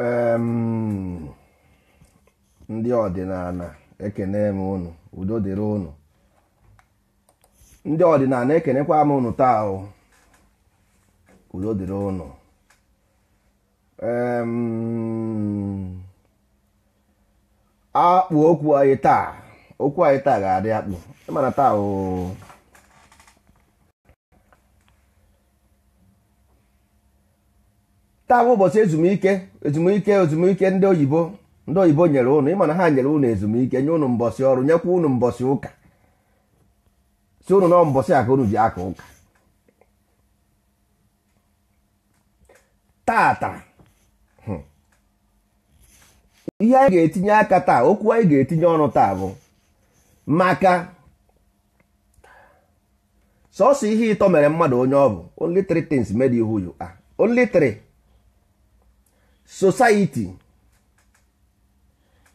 Ehm, ndị ọdịnala ekene m unu udo dịrị unu ndị ọdịnala ekenekwa m unu taa o udo dịrị unu ehm, akpụ okwu anyị taa okwu anyị taa ga-adị akpụ ịmana taa o taa bụ ụbọchị ezumike ezumike ezumike ndị oyibo ndị oyibo nyere ụnụ ịma na ha nyere ụnụ ezumike nye ụnụ mbọsị ọrụ nyekwa ụnụ mbọsị ụka si ụnụ nọ mbọsị aka ji aka ụka hmm. ihe anyị ga-etinye aka taa okwu anyị ga-etinye ọnụ taa bụ maka sọsọ ihe ịtọ mere mmadụ onye ọ bụ only society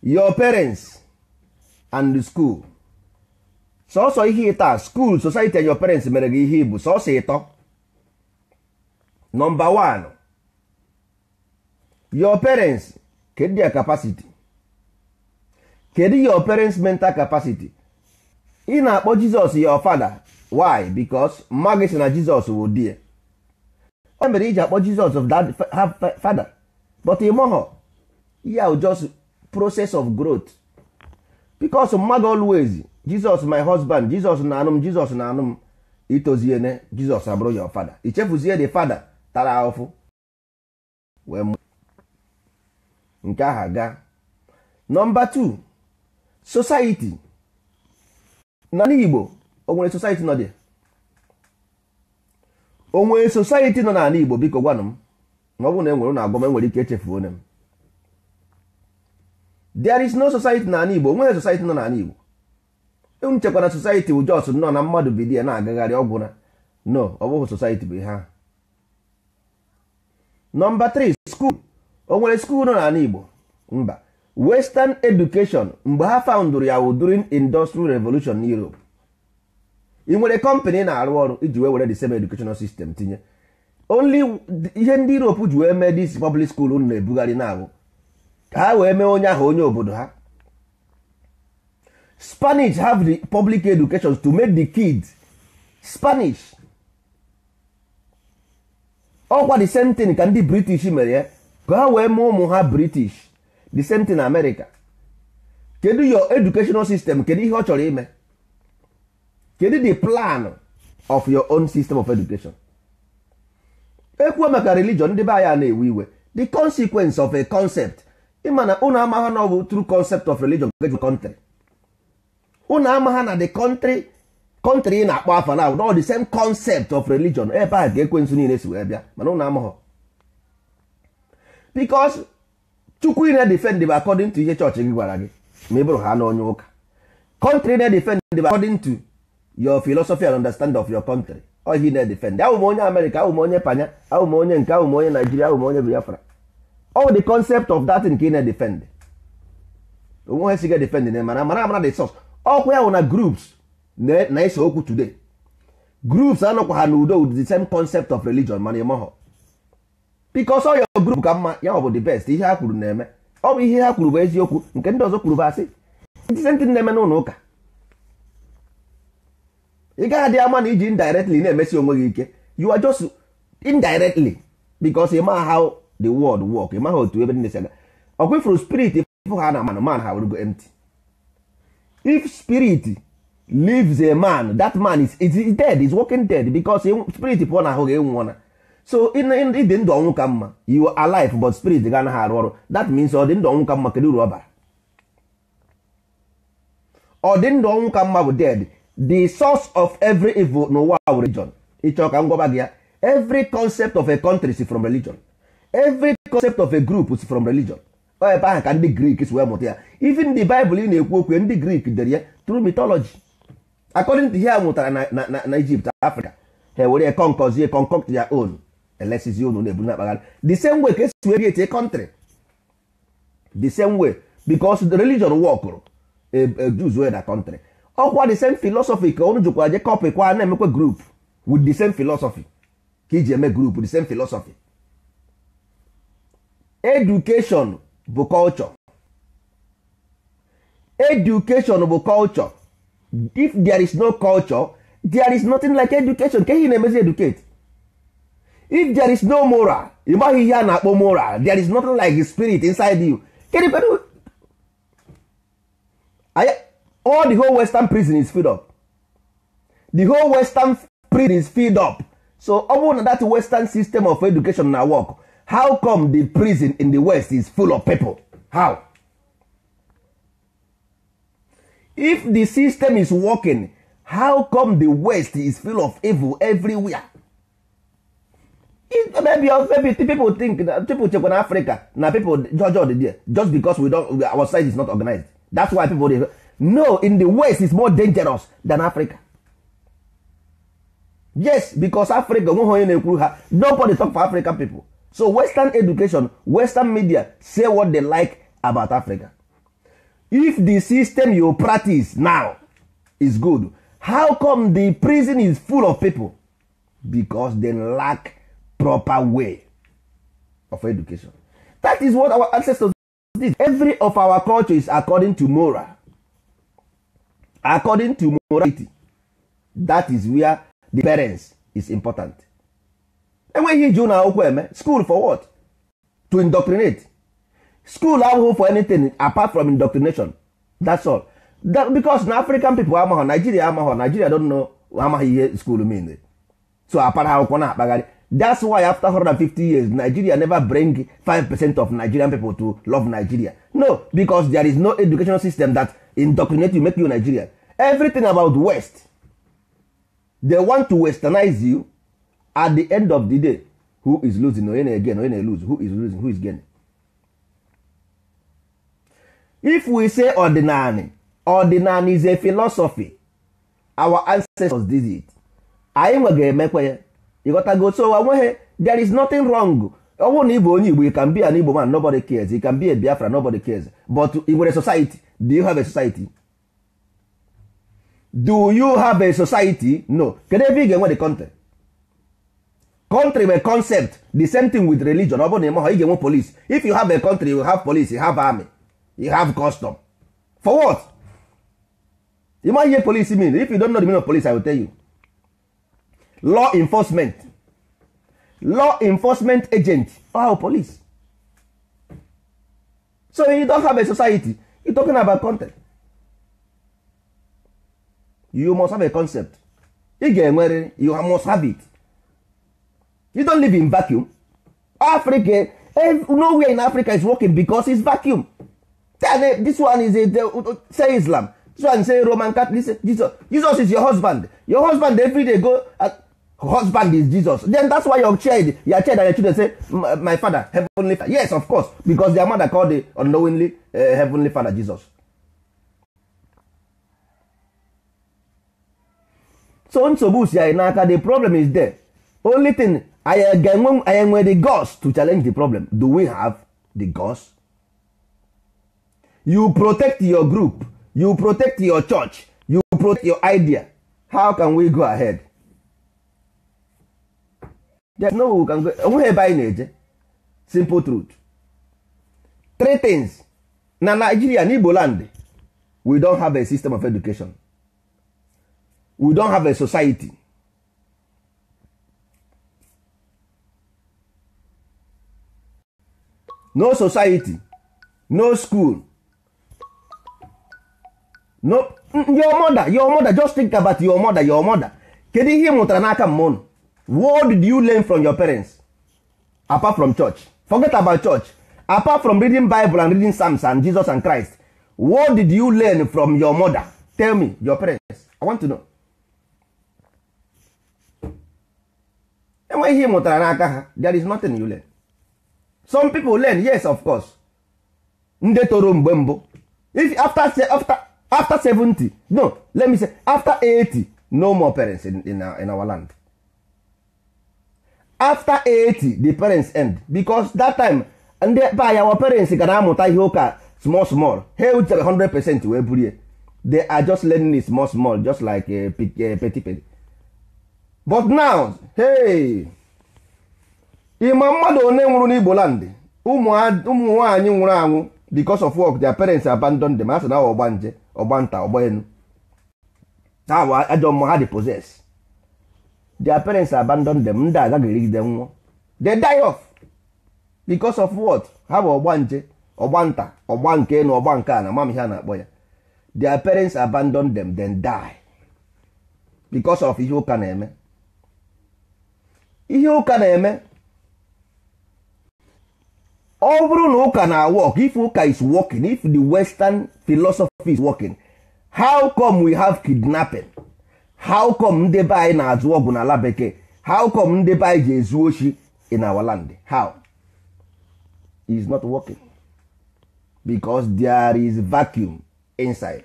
your parents and the school sọsọ ihe ịta school society and your parents mere gị ihe ibu sọsọ ịtọ nọmba one, your parents kedu ya capacity kedu your parents mental capacity ị na-akpọ jizọs your father why Becos mmadụ na jizọs wụ die. ya mere iji akpọ jizọs of that father but imoho ya just process of growth because mmadụ always Jesus my husband Jesus na anụ m Jesus na anụ m itoziene Jesus abụrụ ya father ichefuzie the father tara ahụfụ wee nke aha gaa nọmba 2 society na Igbo onwere society nọ dị o society nọ n'ala Igbo biko gwanụ m E ọ bụrụ na enwere na agwa m enwere ike echefu onye m there is no society na Igbo nwere society nọ n'ala Igbo m e chekwara society Jos nọ na mmadụ bido ya na-agagharị ọgwụ na no ọ bụghị society bụ ihe nọmba 3 skuul o nwere skuul nọ n'ala Igbo mba western education mgbe ha faụndụrụ ya during industrial revolution n'Europe ị nwere kọmpanị na-arụ ọrụ iji wee were the same educational system tinye only ihe ndị europe ji wee mee dis public school unu na-ebugharị na-abụ ka ha wee mee onye ahụ onye obodo ha spanish have the public education to make the kids spanish ọkwa the same thing ka ndị british mere ya ka ha wee mee ụmụ ha british the same thing america kedu your educational system kedu ihe ọ chọrọ ime kedu the plan of your own system of education ekwuo maka religion ndị be anya na-ewe iwe the consequence of a concept Imana na ụnụ amagha na ọ bụ true concept of religion ga country ụnụ amagha na the country country ị na-akpọ afa na ọ the same concept of religion ebe a ga-ekwe nsu niile si wee bịa mana ụnụ amagha because chukwu ị na-defend bụ according to ihe chọọchị gị gwara gị ma ị bụrụ ha na ụka country na-defend bụ according to your philosophy and understand of your country ohi na-edefend ahụ m onye amerịka ahụ m onye panya ahụ m onye nke ahụ m onye naijiria ahụ m onye biafra all the concept of that nke ị na-edefend onwe ha siga defend na mara mara amara the source ọkwa ya wụ na groups na-ese okwu today groups anọkwa ha n'udo with the same concept of religion mana ịmọhọ because all your group ka mma ya ọ bụ the best ihe ha kwuru na-eme ọ bụ ihe ha kwuru bụ eziokwu nke ndị ọzọ kwuru bụ asị ndị senti na-eme n'ụlọ ụka ị gaghị adị ama na iji indirectly na-emesi onwe gị ike you are just indirectly because ịma how the world work ịma ha otu ebe ndị na aga ifuru spirit fụ ha na man man ha were go empty if spirit leaves a man that man is, is, dead is working dead because spirit pụọ na ahụ gị nwụọ na so ịdị ndụ ọnwụ ka mma you are alive but spirit ga anaghị arụ ọrụ that means ọ dị ndụ ọnwụ ka mma kedu uru ọ bara ọ dị ndụ ọnwụ ka mma bụ dead the source of every evil n'ụwa bụ religion ịchọ ka m gị ya every concept of a country is from religion every concept of a group is from religion ọ ebe ahụ ka ndị grik si wee mụta ya even the bible ị na-ekwu okwu ndị grik dere ya through mythology according to ihe a mụtara na na Egypt Africa ha were concozie concoct ya own elesizi unu na-ebu na-akpagharị the same way ka esi wee a country the same way because the religion workụrụ a e, e, Jews were the country ọkwa the same philosophy ka unu jikwa je copy kwa na-emekwa group with the same philosophy ka iji eme group the same philosophy education bụ culture education bụ culture if there is no culture there is nothing like education ka ihe na-emezi educate if there is no moral ị maghị ihe a na-akpọ moral there is nothing like the spirit inside you Kedu kedu? all the whole western prison is filled up the whole western prison is filled up so ọ that western system of education na work how come the prison in the west is full of people how if the system is working how come the west is full of evil everywhere maybe, maybe people think that people check on africa na people judge all the there just because we don't our side is not organized that's why people dey no in the west is more dangerous than africa yes because africa onye na-ekwuru ha nobody talk for african people so western education western media say what they like about africa if the system you practice now is good how come the prison is full of people because they lack proper way of education that is what our ancestors did every of our culture is according to moral according to morality that is where the parents is important enweghị iji ụlọ akwụkwọ eme school for what to indoctrinate school ahụhụ for anything apart from indoctrination that's all that, because na african people amaghọ nigeria amaghọ nigeria don't know amaghị ihe school mean so apara akwụkwọ na-akpagharị that's why after 150 years nigeria never bring 5% of nigerian people to love nigeria no because there is no educational system that indoctrinate you make you nigerian everything about west they want to westernize you at the end of the day who is losing or again or who is losing who is gaining if we say ordinary ordinary is a philosophy our ancestors did it anyị nwe ga-emekwa ya ịghọtago so onweghị uh, there is nothing wrong ọ bụrụ na ị bụ onye igbo you can be an igbo man nobody cares you can be a biafra nobody cares but ị nwere society do you have a society do you have a society no kedu ebe ị ga-enwe the country country bụ concept the same thing with religion ọ bụrụ na ịmaghọ ị ga-enwe police if you have a country you have police you have army you have custom for what? ịmaghị ihe police mean if you don't know the meaning of police I will tell you law enforcement law enforcement agent or police so you don't have a society you talking about content you must have a concept ị ga-enwere you must have it you don't live in vacuum africa eh, nowhere in africa is working because it's vacuum this one is a, the, say islam this one say roman catholic jesus jesus is your husband your husband every day go at, husband is jesus then that's why your child your child and your children say my father heavenly father. yes of course because their mother called the unknowingly uh, heavenly father jesus so nsogbu si anyị n'aka the problem is there only thing I ga ga-enwe anyị the gods to challenge the problem do we have the gods? you protect your group you protect your church you protect your idea how can we go ahead onweghị ebe anyị na-eje simple truth three things na Nigeria na Igbo land we don have a system of education we don have a society no society no school no your mother your mother just think about your mother your mother kedu ihe ị mụtara n'aka mma what did you learn from your parents apart from church forget about church apart from reading bible and reading psalms and jesus and christ what did you learn from your mother tell me your parents i want to know enweghị ihe mụtara n'aka ha there is nothing you learn some people learn yes of course ndị toro mgbe mbụ if after, after, after 70 no let me say after 80 no more parents in, in, our, in our land after 80 the parents end because that time ndị be anya parents ga na-amụta ihe ụka small small ha ewutere 100 percent wee burie they are just learning it small small just like eh, eh, petty petty but now hey ịma mmadụ one nwụrụ n'igbo land ụmụ nwanyị nwụrụ anwụ because of work their parents abandon them a sị na ọgba nje ọgba nta ọgba enu ha ajọ mmụọ ha dị possess their parents abandon them ndị agaghị erigide nwụọ they die of because of what ha bụ ọgba nje ọgba nta ọgba nke na ọgba nke a na mam ihe a na-akpọ ya their parents abandon them then die because of ihe ụka na-eme ihe ụka na-eme ọ bụrụ na ụka na work if ụka is working if the western philosophy is working how come we have kidnapping? how come ndị be anyị na-azụ ọgwụ n'ala bekee how come ndị be anyị ji ezu oshi in our land how is not working because there is vacuum inside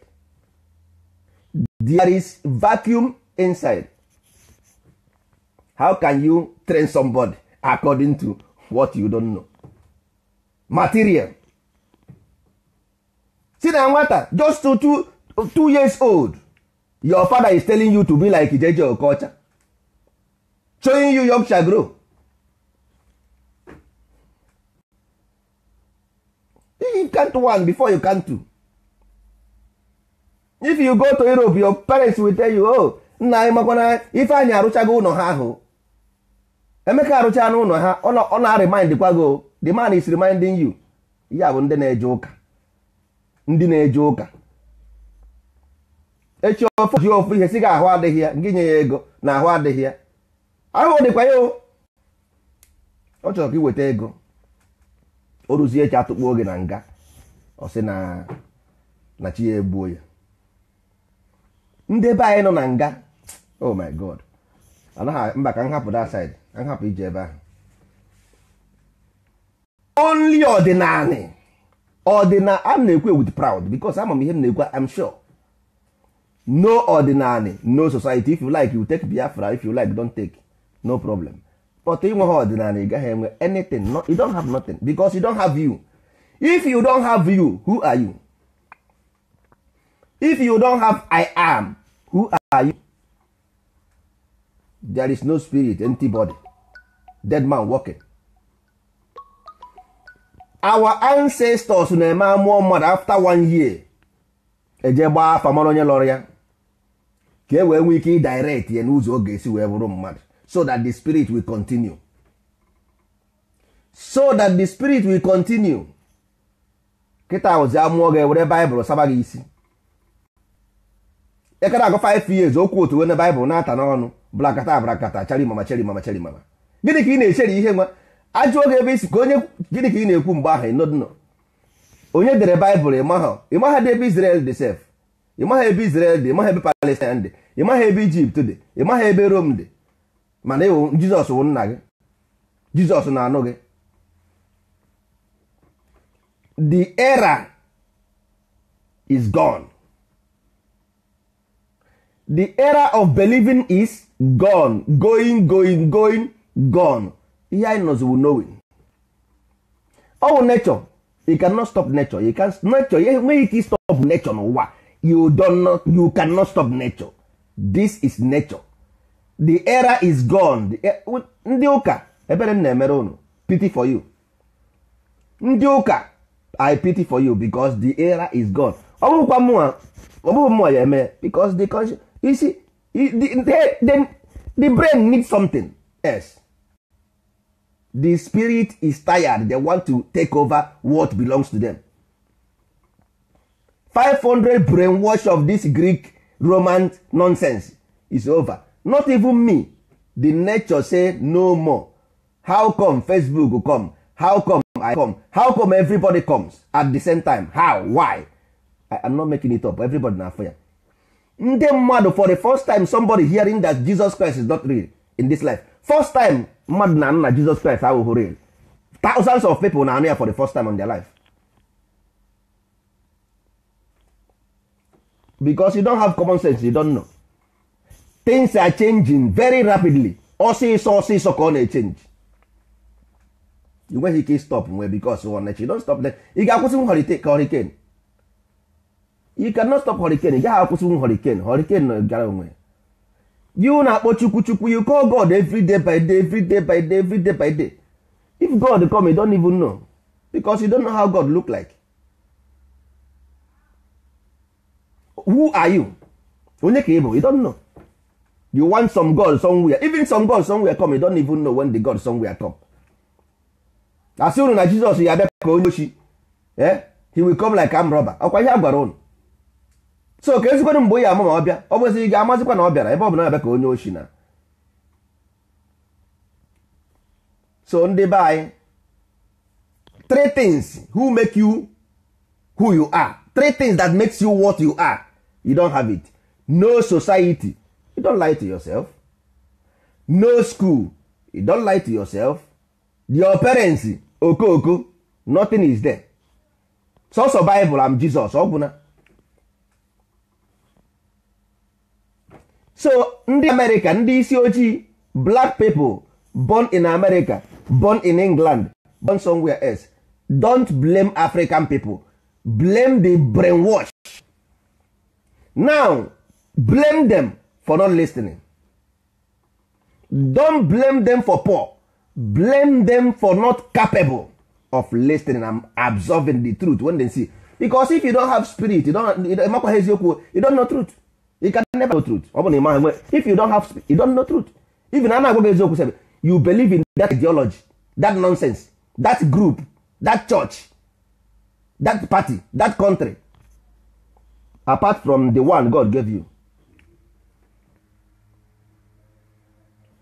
there is vacuum inside how can you train somebody according to what you don't know material si na nwata just two two two two years old your father is telling you to be like Ijeje Okocha showing you Yorkshire grow you can't one before you can two if you go to Europe your parents will tell you oh nna anyị makwana ife anyị arụchago ụlọ ha ahụ emeka arụcha n'ụlọ ha ọ na-arimind kwago oh, the man is reminding you ya bụ ndị na-eje ụka ndị na-eje ụka echi ofu ji ofu ihe si gị ahụ adịghị ya ngị nye ya ego na ahụ adịghị ya ahụ dịkwa ya ọ chọrọ ka weta ego o ruzie echi atụkpuo oge na nga ọ sị na na chi ya egbuo ya ndị be anyị nọ na nga oh my god anaghị mba ka nhapụ that side nhapụ ije ebe ahụ only ọdịnala ọdịna I'm na-ekwu with proud because ama m ihe m na-ekwu I'm sure no ordinary no society if you like you take biafra if you like don't take no problem but inwe ha ọdịnala ị gaghị enwe anything no, you don't have nothing because you don't have you if you don't have you who are you if you don't have i am who are you there is no spirit empty body dead man walking our ancestors na-eme amụọ mmadụ after one year eje gbaa afa mara onye lọrọ ya ka e wee nwee ike ịdirect ya n'ụzọ oge esi wee bụrụ mmadụ so that the spirit will continue so that the spirit will continue kịta ahụzi amụọ gị ewere baịbụl saba gị isi Ekere agụ 5 years okwu otu wena baịbụl na-ata n'ọnụ blakata blakata chari mama chari mama chari mama gịnị ka ị na echeri ihe nwa ajụ oge ebe isi ka onye gịnị ka ị na-ekwu mgbe ahụ ịnọdụnọ onye dere baịbụl ịmaha ebe Israel dị sef ịmaha ebe Israel dị ịmaha ebe Palestine dị ịmaha ebe Ijipt dị ịmaha ebe Rom dị mana ịwụ Jizọs wụ nna gị Jizọs na-anụ gị the era is gone the era of believing is gone going going going gone ihe anyị nọziwu knowing ọ wụ nature you cannot stop nature you can nature ya enweghị stop nature n'ụwa you don't not you cannot stop nature this is nature the era is gone ndị ụka ebere m na-emere unu pity for you ndị ụka i pity for you because the era is gone ọ bụkwa mụnwa ọ bụghị mụnwa ya eme because the conscious you see the, the, the, the brain needs something else the spirit is tired they want to take over what belongs to them 500 brainwash of this greek roman nonsense is over not even me the nature say no more how come facebook come how come i come how come everybody comes at the same time how why i am not making it up everybody na afọ ndị mmadụ for the first time somebody hearing that jesus christ is not real in this life first time mmadụ na nna jizọs kraịst ahụhụ real thousands of people na-anụ ya for the first time in their life because you don't have common sense you don't know things are changing very rapidly ọsịsọ ọsịsọ ka ọ na-echange enweghị ike stop nwe because you don't stop them ị ga-akwụsị ka hurricane you cannot stop hurricane ị gaghị akwụsị hurricane hurricane gara onwe you na-akpọ chukwu chukwu you call god every day by day every day by day every day by day if god come you don't even know because you don't know how god look like who are you onye ka ị you don't know you want some god somewhere even some god somewhere come you don't even know when the god somewhere come As soon as Jesus, ya abịa ka onye ochi eh, he will come like am robber ọkwa ihe a gwara unu so ka ezigbo mgbe ya ama ma ọ bịa ọ bụrụzi gị amazikwa na ọ bịara ebe ọ bụla na-abịa ka onye oshi na so ndị be anyị three things who make you who you are three things that makes you what you are you don't have it no society you don't lie to yourself no school you don't lie to yourself your parents okooko nothing is there sọsọ Bible am Jesus ọ gwụna so ndị amerịka ndị isi ojii black people born in america born in england born somewhere else don't blame african people blame the brainwash now blame them for not listening don't blame them for poor blame them for not capable of listening and absorbing the truth when they see because if you don't have spirit you don't eziokwu you don't know truth never know truth ọ bụ na ị maghị if you don't have speech you don't know truth even a na-agwa gị eziokwu sebe you believe in that ideology that nonsense that group that church that party that country apart from the one God gave you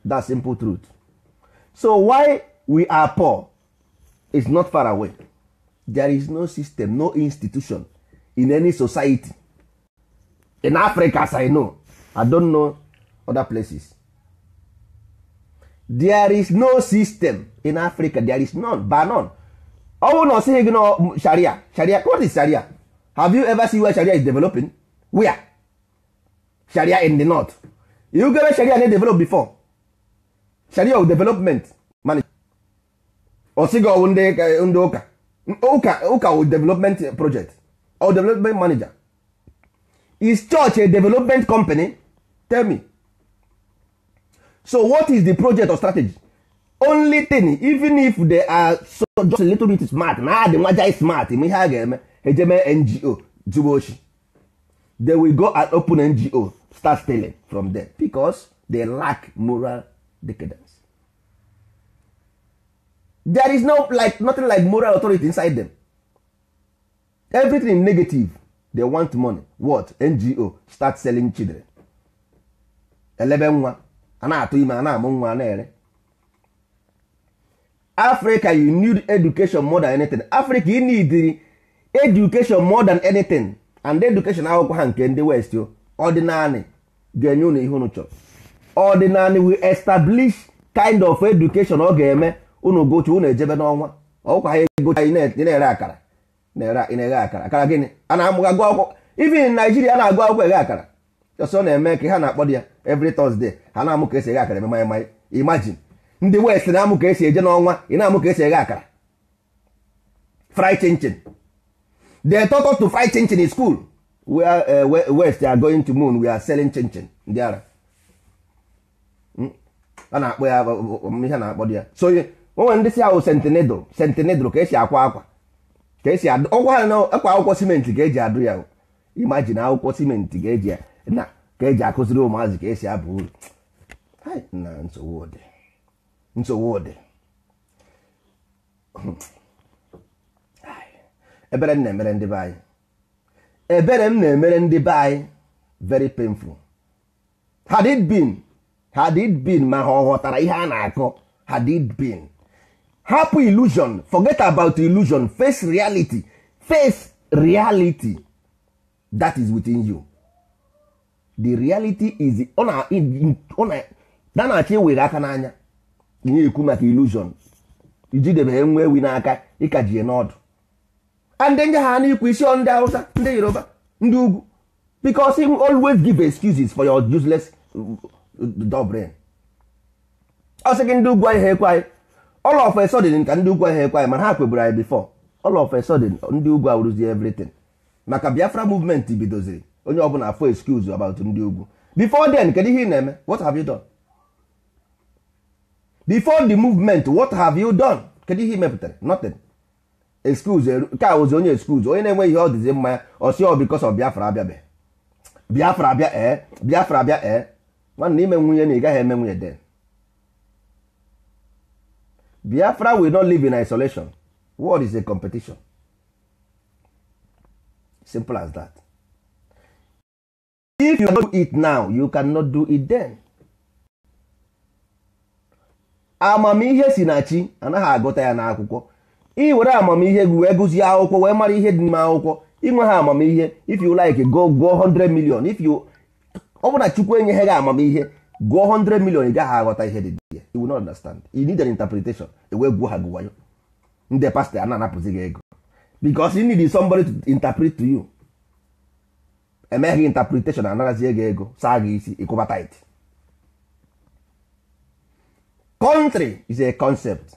that simple truth so why we are poor is not far away there is no system no institution in any society in africa as i know i don't know other places there is no system in africa there is none ba none ọnwụ na ọsịghị gị na sharia sharia what is sharia have you ever seen where sharia is developing where sharia in the north you gere sharia na develop before sharia of development ọsịghị ọwụ ndị ụka ụka ụka development project or development manager is church a development company tell me so what is the project or strategy only thing even if they are so just a little bit smart na the nwaja is smart ma ihe a ga-eme ejeme ngo zuru ochi they will go and open ngo start stealing from them because they lack moral decadence there is no like nothing like moral authority inside them everything negative they want money what ngo start selling children elebe nwa a na-atụ ime a na-amụ nwa na-ere africa you need education more than anything africa you need education more than anything and education akwụkwọ ha nke ndị west o ọdịnanị ga-enye ụlọ ihe ụnụ chọrọ ọdịnanị we establish kind of education ọ ga-eme unu gochi ụnụ ejebe n'ọnwa ọkwa ha egochi anyị na-ere akara na-eghe akara akara gịnị a na-amụga agụ akwụkwọ even Naijiria na-agụ akwụkwọ eghe akara ọsọ na-eme ka ha na-akpọ ya evri Thursday ha na-amụ ka esi eghe akara eme maịmaị imagine ndị West na-amụ ka esi eje n'ọnwa ị na-amụ ka esi eghe akara fry chinchin they taught us to fry chinchin in school where uh, eh, West are going to moon we are selling chinchin ndị ara hmm? a na-akpọ ya ihe na-akpọ ya so onwe ndị si awụ sentinedl sentinedl ka esi akwa akwa ka esi ọgwa ha na akwa akwụkwọ simenti ka eji adụ ya imajin akwụkwọ simenti ka eji na ka eji akụziri ụmụazị ka esi aba uru na nsogbu ụdị nsogbu ụdị ebere m na-emere ndị be anyị ebere m na-emere ndị be anyị very painful had it been had it been ma ha ọ ghọtara ihe a na-akọ had it been hapụ illusion forget about illusion face reality face reality that is within you the reality is na na aka n'anya ihe ekwu maka illusion ijidebe nwa ewi n'aka ịkajie n'ọdụ and ndị ha n'ikwu isi ndị Hausa ndị Yoruba ndị ugwu because him always give excuses for your useless uh, dog ọ sị gị ndị ugwu anyị ha ekwe anyị all of a sudden ka ndị ugwu ahụ ekwe anyị mana ha kweburu anyị before all of a sudden ndị ugwu awụrụzi everything maka biafra movement bidoziri onye na fo excuse about ndị ugwu before den kedu ihe ị na-eme what have you done bifor the movement what have you done kedu ihe ị mepụtara nothing excuse nke a ozi onye excuse onye na-enwe ihe ọ dịzi mma ya ọsi ọ oh, because of biafra abịabe biafra abịa ee eh? biafra abịa ee eh? nwanna ime nwunye na ị gaghị eme nwunye den biafra will not live in isolation world is a competition simple as that if you do it now you cannot do it then amamihe si na chi anaghị agụta ya n'akwụkwọ ị were amamihe gị wee gụzie akwụkwọ wee mara ihe dị n'ime akwụkwọ inwe ha amamihe if you like go go 100 million if you ọ bụ chukwu enyeghị gị amamihe gụọ 100 million ị gaghị aghọta ihe dị you will not understand you need an interpretation ewee gwuo ha gị wayo ndị pastọ a na-anapụzi gị ego because you need somebody to interpret to you emeghị interpretation anarazie gị ego saa gị isi ịkwụba tit country is a concept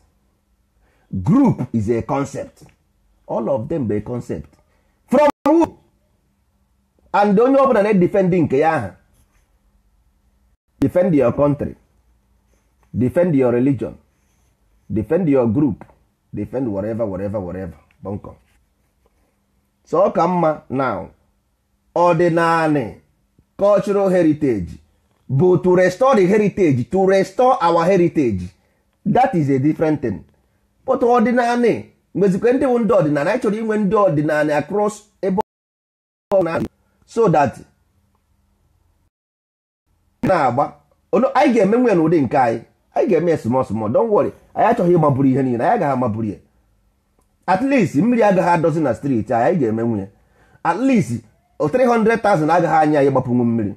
group is a concept all of them be a concept from who and onye ọbụla na-edefendi nke ya aha defend your country defend your religion defend your group defend whatever whatever whatever bọnkọ so ọ ka mma now ọdịnanị cultural heritage bụ to restore the heritage to restore our heritage that is a different thing but ọdịnanị mgbezikwe ndị bụ ndị ọdịnala anyị inwe ndị ọdịnala across ebe so that na-agba anyị ga-eme nwe n'ụdị nke anyị anyị ga-eme ya small small don't worry anyị achọghị ịmaburu ihe niile anyị agaghị amaburu ya at least mmiri agaghị adọzi na streeti anyị ga-eme nwunye at least 300,000 agaghị anya anyị gbapụnwu mmiri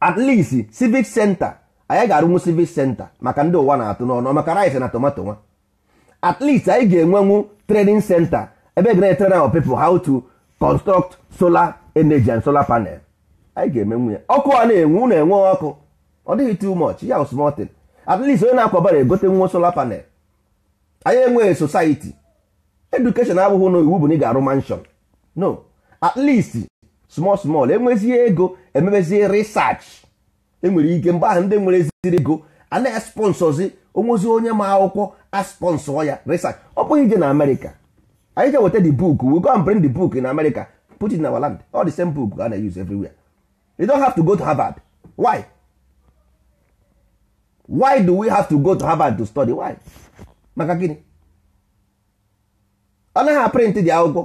at least civic center anyị ga-arụnwu civic center maka ndị ụwa na-atụ n'ọnụ maka rice na tomato nwa at least anyị ga-enwenwu training center ebe gana etrena our people how to construct solar energy and solar panel anyị ga-eme nwunye ọkụ a na-enwu na-enwe ọkụ ọ dịghị too much ya wụ small thing at least onye na-akwabara egote nwa solar panel anyị enweghị society education abụghị na iwu bụ na ị ga-arụ mansion no at least small small enwezie ego emebezie research enwere ike mgbe ahụ ndị nwere eziri ego a na-esponsozi onwezi onye ma akwụkwọ asponsọ ya research ọ bụghị ije na Amerịka anyị ga weta the book we go and bring the book in America put it in our land all the same book a na-use everywhere you don't have to go to Harvard why why do we have to go to harvard to study why maka gịnị ọ naghị aprịntị dị akwụkwọ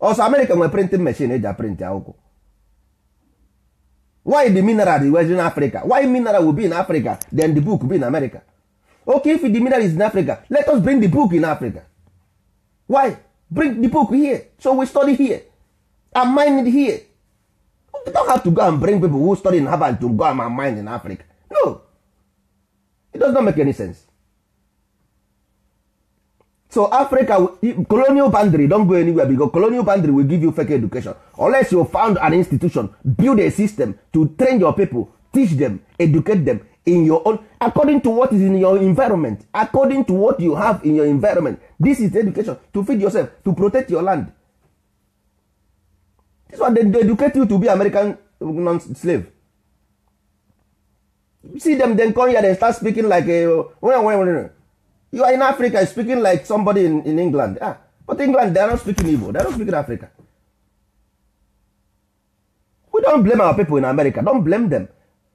ọsọ amerịka nwere printing machine eji aprịntị akwụkwọ why the mineral dị in africa why mineral will be in africa then the book be in america okay if the mineral is in africa let us bring the book in africa why bring the book here so we study here and mine it here we don't have to go and bring people who study in harvard to go and mine in africa no it does not make any sense so africa colonial boundary don go anywhere because colonial boundary will give you fake education unless you found an institution build a system to train your people teach them educate them in your own according to what is in your environment according to what you have in your environment this is education to feed yourself to protect your land this one dey they educate you to be american uh, non-slave see them then come here they start speaking like a, eh, when, when, when, you are in africa speaking like somebody in, in england ah, but england they are not speaking igbo they are not speaking africa we don't blame our people in america don't blame them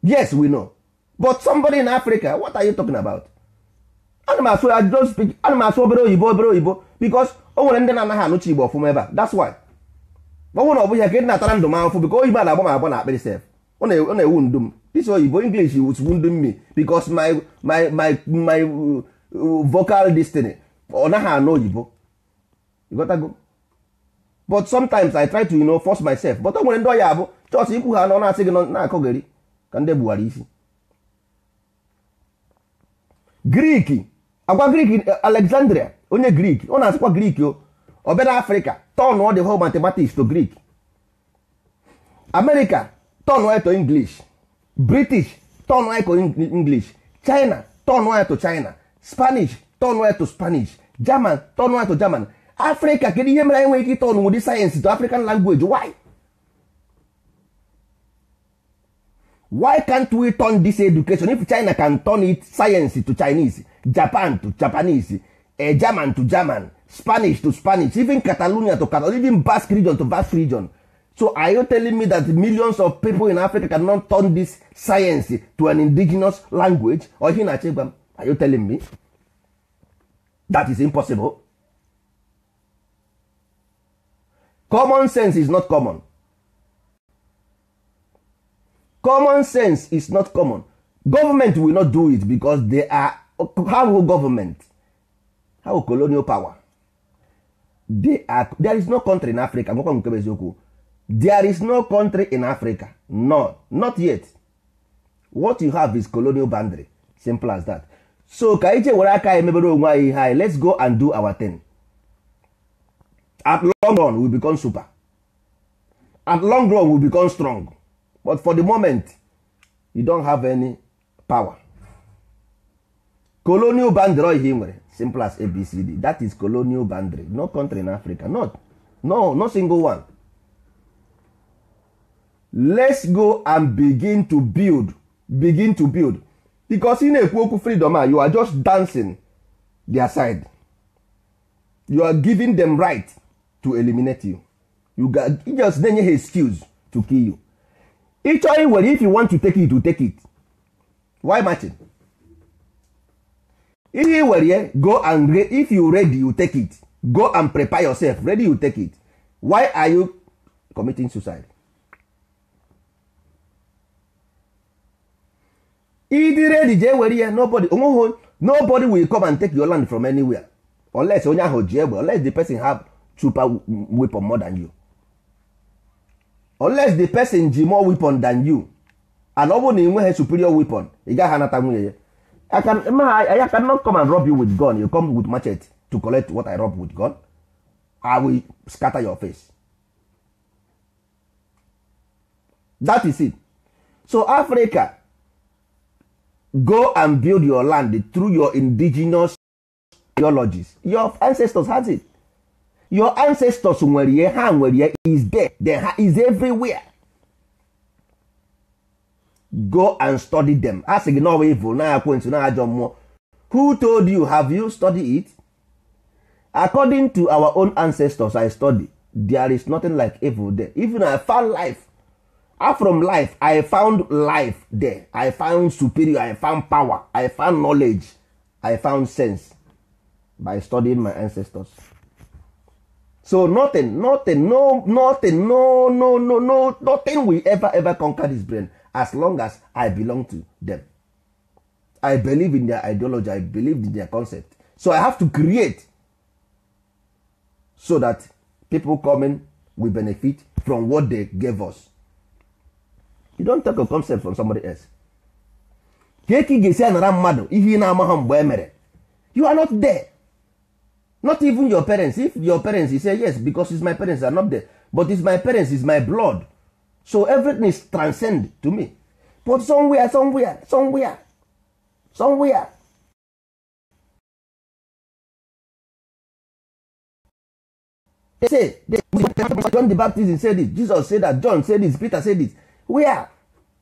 yes we know but somebody in africa what are you talking about animals I don't speak animals obere oyibo obere oyibo because o nwere ndị na-anaghị igbo ọfụma ebe a that's why ọ bụrụ na ọ bụghị ka ị na-atara ndụ m ahụfụ biko oyibo a na-agba m agba na akpịrị sef ọ na-ewu ndụ m this oyibo english is wounding me because my my my my uh, vocal destiny ọ naghị anụ oyibo ịghọtago but sometimes i try to you know, force myself but o nwere ndị ọya abụ chọọchị ikwu ha nọ na-asị gị na-akọgheri ka ndị gbuwara isi grik agwa grik alexandria onye grik ọ na-asịkwa grik o obere afrịka tọn ọ dị ho mathematics to grik amerika turn white to english british turn white to english china turn white to china spanish turn white to spanish german turn white to german africa kedu ihe mere anyị nwere ike ịtọn sayensị to african language why why can't we turn this education if china can turn it science to chinese japan to japanese eh, german to german spanish to spanish even catalonia to catalonia even basque region to basque region so are you telling me that millions of people in africa cannot turn this science to an indigenous language or you na-achọ are you telling me that is impossible common sense is not common common sense is not common government will not do it because they are how will government how colonial power they are there is no country in africa nwekwa nke eziokwu there is no country in africa no not yet what you have is colonial boundary simple as that so ka ije were aka emebere onwe anyị ihe anyị let's go and do our thing at long run we become super at long run we become strong but for the moment you don't have any power colonial boundary ihe nwere simple as abcd that is colonial boundary no country in africa not no no single one let's go and begin to build begin to build becos ị na-ekwu okwu freedom a you are just dancing their side you are giving them right to eliminate you you just na-enye ha excuse to kill you ịchọ iwere if you want to take it you take it why marching ihe ye go and if you ready you take it go and prepare yourself ready you take it why are you committing suicide ịdị redi jee were ya nobody onweghị nobody will come and take your land from anywhere unless onye ahụ ji egbe unless the person have super weapon more than you unless the person ji more weapon than you and ọ bụrụ na ị nweghị superior weapon ị gaghị anata nwunye ya I can, not cannot come and rob you with gun you come with machete to collect what I rob with gun I will scatter your face that is it so Africa go and build your land through your indigenous theologies your ancestors has it your ancestors nwere ihe ha nwere ihe is there then ha is everywhere go and study them a sị gị na ọwa evil na ekwentị na ajọ mmụọ who told you have you studied it according to our own ancestors i study there is nothing like evil there even I found life from life i found life there i found superior i found power i found knowledge i found sense by studying my ancestors so nothing nothing no nothing no no no no nothing will ever ever conquer this brain as long as i belong to them i believe in their ideology i believe in their concept so i have to create so that people coming will benefit from what they gave us you don't take a concept from somebody else ka ị ga-esi anara mmadụ ihe ị na-amaghị mgbe e mere you are not there not even your parents if your parents you say yes because it's my parents are not there but it's my parents it's my blood so everything is transcend to me but somewhere somewhere somewhere somewhere they say they, John the Baptist said it Jesus said that John said this Peter said this wia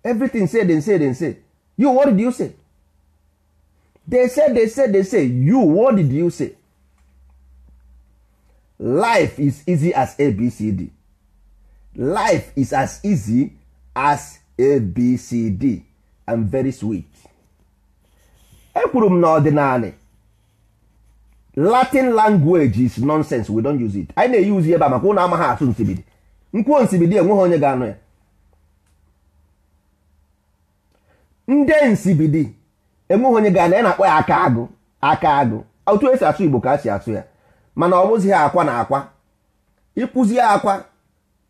everything say dem say dem say you what did you say dey say dey say dey say you what did you say life is easy as abcd life is as easy as abcd and very sweet ekwuru m n'ọdịnala latin language is nonsense we don't use it anyị na-eyi uzi ebe a maka ụlọ amaghị asụ nsibidi nkwuo nsibidi enweghị onye ga-anụ ya ndị nsibidi enweghị onye ga na ya na-akpọ ya aka agụ aka agụ otu esi asụ igbo ka a si asụ ya mana ọ bụzi ha akwa na akwa ịkpụzi akwa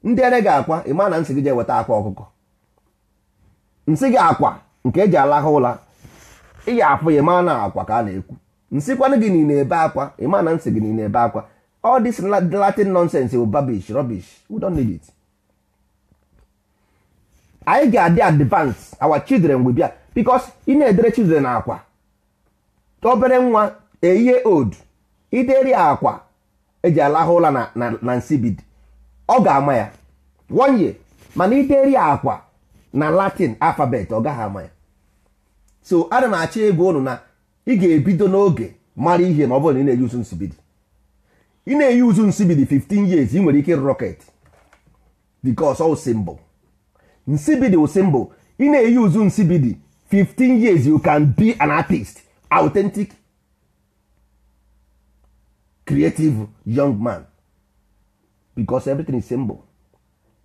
ndị ere gị akwa ịma na nsị gị je weta akwa ọkụkọ nsị gị akwa nke eji alaha ụla ịyi afụ ya ịma na akwa ka a na-ekwu nsịkwanụ gị niile ebe akwa ịma na nsị gị niile ebe akwa ọ this Latin nonsense bụ babish rubbish we anyị ga-adị advance our children will bia because ị na-edere children akwa obere nwa eyihe old ideri akwa eji alahụ ụla na nsi bid, ọ ga-ama ya one year mana ideri akwa na latin alfabet ọ gaghị ama ya so ana m achọ ịgwa ụnụ na ị ga-ebido n'oge mara ihe ma ọ bụrụ na ị na-eyi uzu nsibidi ị na-eyi uzu nsibidi 15 years ị nwere ike rọket because all mbụ. nsibidi wụ symbol ị na-eyuzu nsibidi 15 years you can be an artist authentic creative young man because everything is symbol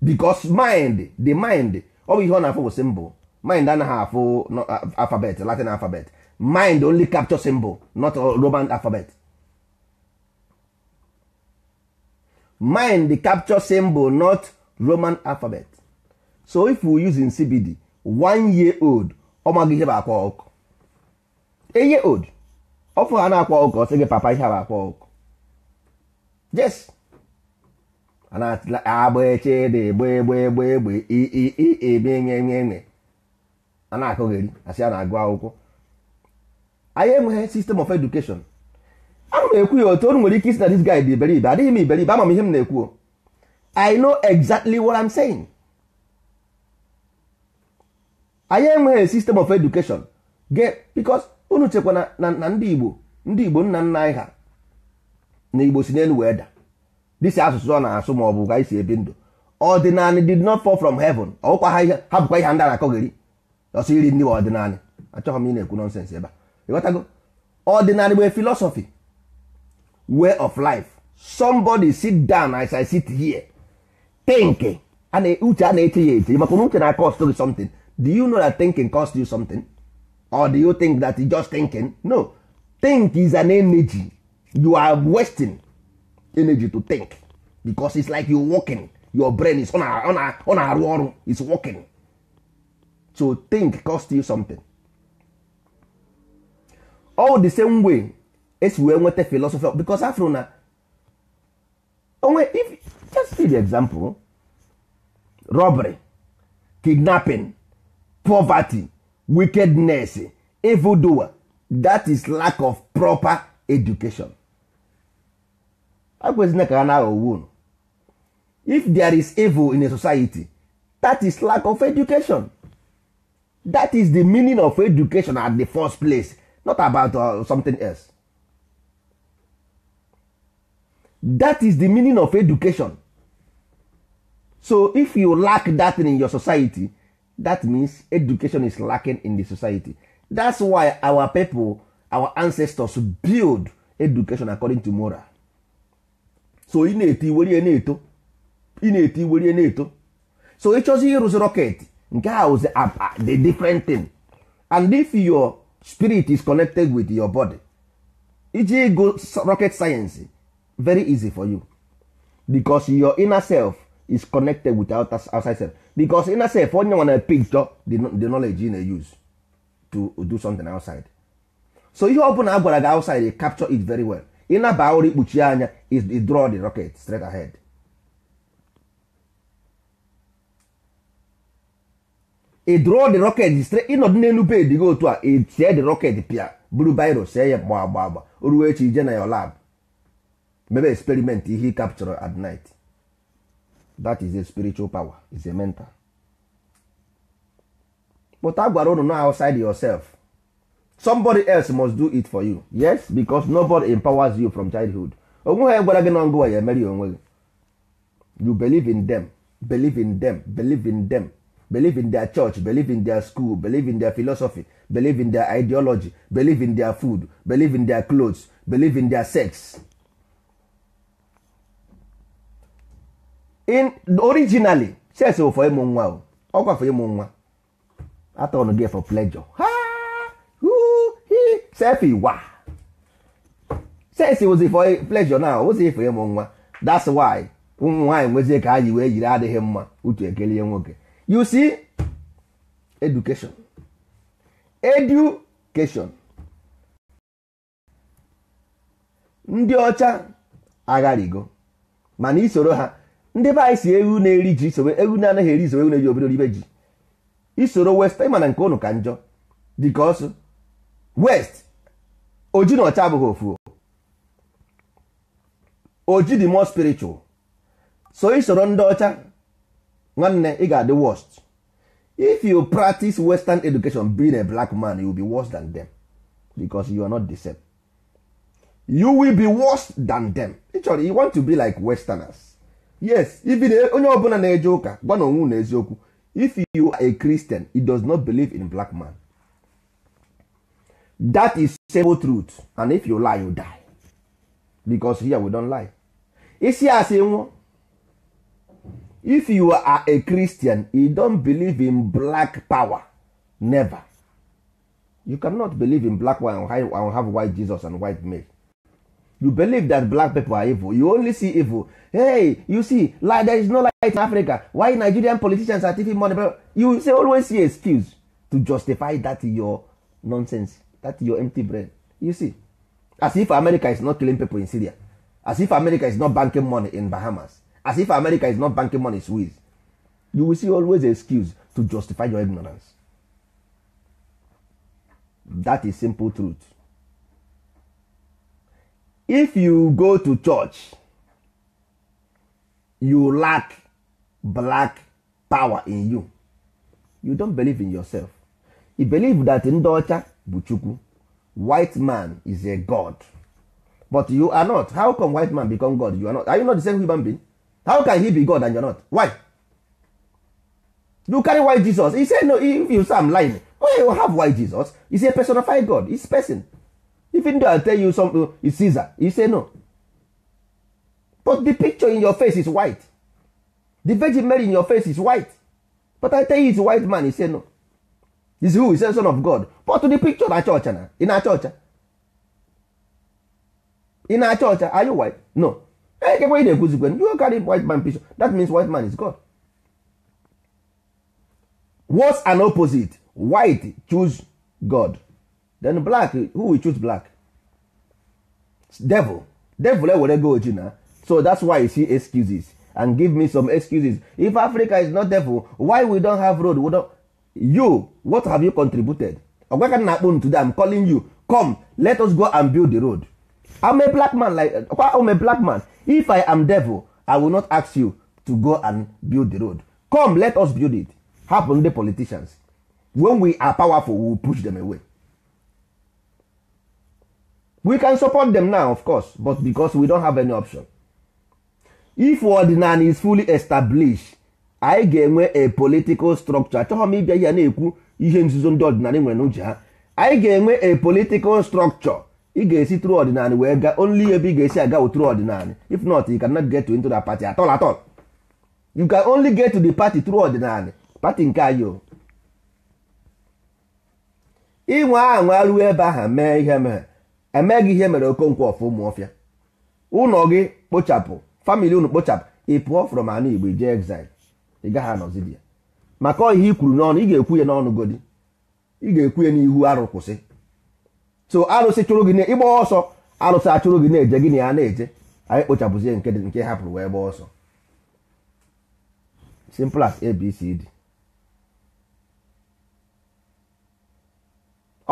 because mind the mind ọ bụ ihe ọ na-afụ bụ symbol mind anaghị afụ alphabet latin alphabet mind only capture symbol not roman alphabet mind capture symbol not roman alphabet so if we using CBD one year old ọ maghị ihe bụ akwa ọkụ eye old ọfụ ha na-akwa ọkụ ọ sị gị papa ihe bụ akwa ọkụ jes agba echede gbe egbe egbe egbe ebe nye nye nye a na-akụgheri asị a na-agụ akwụkwọ anyị enweghị sistem of education ana m ekwu ya otu onu nwere ike isi na dis guy dị iberibe adịghị m iberibe ama m ihe m na-ekwu I know exactly what I'm saying. anyị enweghị sistem of education ge bikos unu chekwa na ndị igbo ndị igbo nna nna anyị ha na igbo si n'elu wee da dịsi asụsụ ọ na-asụ ma ọ bụ ka isi ebi ndụ ọdịnanị did not fall from heaven ọkwa ha ihe ha bụkwa ihe ndị na-akọgheri ọsọ iri ndị ọdịnanị achọghị m ị na-ekwu nọnsens ebe a ịghọtago ọdịnanị bụ philosophy way of life somebody sit down as i sit here think uche a na-eche ya eche maka na uche na-akọ ọsọ gị something do you know that thinking costs you something or do you think that it's just thinking no think is an energy you are wasting energy to think because it's like you walking your brain is on a on a on a ọrụ is walking so think cost you something all the same way esi wee nweta philosopher because afro na onwe if just see the example robbery kidnapping poverty wickedness evildoer that is lack of proper education akwezina ka ha na-aghọgbu unu if there is evil in a society that is lack of education that is the meaning of education at the first place not about uh, something else that is the meaning of education so if you lack that in your society that means education is lacking in the society that's why our people our ancestors build education according to moral so ineti na na-eto iwerie na-eto na na-eto so ịchọzi ịrụzi rocket nke a was the different thing and if your spirit is connected with your body iji go rocket science very easy for you because your inner self is connected with outer, outside self because safe, onye nwa na picture the knowledge you na use to do something outside so ihe ọ bụla a gwara gị outside you capture it very well ịnaba ụra ikpuchi anya is draw the rocket straight ahead ị draw the rocket straight ịnọdụ n'elu bed gị otu a tie the rocket pịa buru biro see ya gba agba agba ruo echi ije na your lab mebe experiment ihe capture at night that is a spiritual power is a mental but a gwara unu no outside yourself somebody else must do it for you yes because nobody empowers you from childhood onwe ha gwara gị na ngụwa ya emeri onwe gị you believe in them believe in them believe in them believe in their church believe in their school believe in their philosophy believe in their ideology believe in their food believe in their clothes believe in their sex originally sex bụ for ịmụ nwa o ọkwa for ịmụ nwa atọn gị for pleasure ha hu hi sef iwa sex was for pleasure now ozi for ịmụ nwa that's why ụmụ nwaanyị nwezie ka anyị wee yiri adịghị mma utu ekelie nwoke you see education education ndị ọcha agharigo mana isoro ha ndị be anyị si ewu na-eri ji isowe ewu na-anaghị eri isowe ewu na-eji obere ibe ji isoro west ịma nke ụnụ ka njọ dịka ọsụ west oji na ọcha abụghị ofu oji dị more spiritual so isoro ndị ọcha nwanne ị ga-adị worst if you practice western education being a black man you will be worse than them because you are not the same you will be worse than them ịchọrọ you want to be like westerners yes if onye ọbụla na-eje ụka gwa na onwe if you are a christian he does not believe in black man that is simple truth and if you lie you die because here we don't lie isi asị nwụọ if you are a christian he don't believe in black power never you cannot believe in black one and have white jesus and white male you believe that black people are evil you only see evil hey you see like there is no light in africa why nigerian politicians are taking money you say always see excuse to justify that your nonsense that your empty brain you see as if america is not killing people in syria as if america is not banking money in bahamas as if america is not banking money in swiss you will see always excuse to justify your ignorance that is simple truth if you go to church you lack black power in you you don't believe in yourself you believe that ndị ọcha bụ chukwu white man is a god but you are not how come white man become god you are not are you not the same human being how can he be god and you are not why you carry white jesus he say no if you say am lying oh you have white jesus he's a personified god he's person even though i tell you something uh, is caesar you say no but the picture in your face is white the virgin mary in your face is white but i tell you it's white man you say no is who is the son of god but the picture na na in na ah? in ọcha ah, are you white no ekekwe ị na-ekwuzikwe you carry white man picture that means white man is god what's an opposite white choose god then black who will choose black devil devil ewere eh, go oji na so that's why you see excuses and give me some excuses if africa is not devil why we don't have road we don't you what have you contributed ọgwaka na akpụ today i'm calling you come let us go and build the road i'm a black man like i'm a black man if i am devil i will not ask you to go and build the road come let us build it happen the politicians when we are powerful we will push them away we can support them now of course but because we don't have any option if ordinary is fully established anyị ga-enwe a political structure achọghị m ịbịa ya na-ekwu ihe nzuzo ndị ọdịnala nwere n'uche ha anyị ga-enwe a political structure ị ga-esi tru ọdịnala wee gaa only ebe ị ga-esi aga wụ tru if not you cannot get to into the party at all at all you can only get to the party tru ordinary. party nke anyị o ịnwe anwa ruo ebe ahụ mee ihe mere emeghị ihe mere okonkwo ọfụ ụmụọfịa ụlọ gị kpochapụ famili unu kpochapụ ị pụọ from ala igbo jee exile ị gaghị anọzi ya maka ihe i kwuru n'ọnụ ị ga-ekwu ya n'ọnụ godi ị ga-ekwu ya n'ihu arụ kwụsị so arụsị chụrụ gị ịgba ọsọ arụsị achụrụ gị na-eje gị na ya na-eje anyị kpochapụzie nke hapụrụ wee gbaa ọsọ simple as ABCD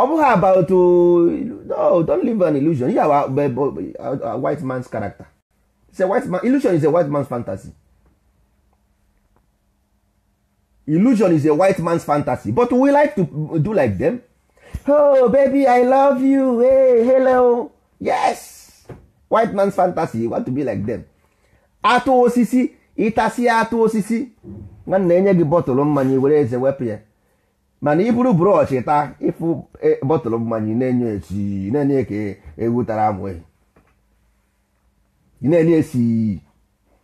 ọ bụghị about uh, no don't live an illusion yeah, a white man's character it's a white man, illusion is a white man's fantasy illusion is a white man's fantasy but we like to do like them oh baby i love you hey hello yes white man's fantasy you want to be like them atụ osisi ịtasị atụ osisi nwanna enye gị bọtụlụ mmanya were eze wepụ ya mana ị buru brọọchị taa ịfụ e, bọtụlụ mmanya na-enye esi na-enye ka ewu tara amụ e. na-enye esi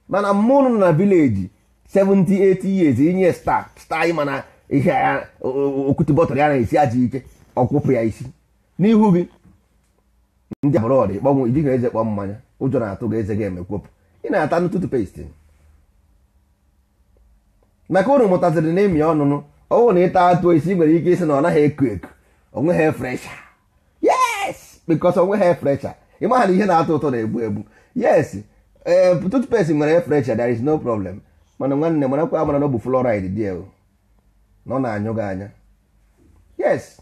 mana mụnụ na vileji 78 years inye sta sta ị mana ihe ya okwute bọtụlụ ya na-esi aja ike ọkwụpụ ya isi n'ihu gị ndị ọdị kpọnwụ ijighị eze kpọ mmanya ụjọ na-atụ gị eze ga-emekwopụ ị na-ata ntụtụ pestin maka unu mụtaziri na ịmị ọnụnụ ọwụ na ịta atụ esi nwere ike isi na ọ naghị eku eku ha fresha yes because ha fresha ịmaha na ihe na-atọ ụtọ na-egbu egbu yes ee eh, toothpaste nwere fresha there is no problem mana nwanne marakwa amara na ọ bụ fluoride dị ewu na ọ na-anyụ gị anya yes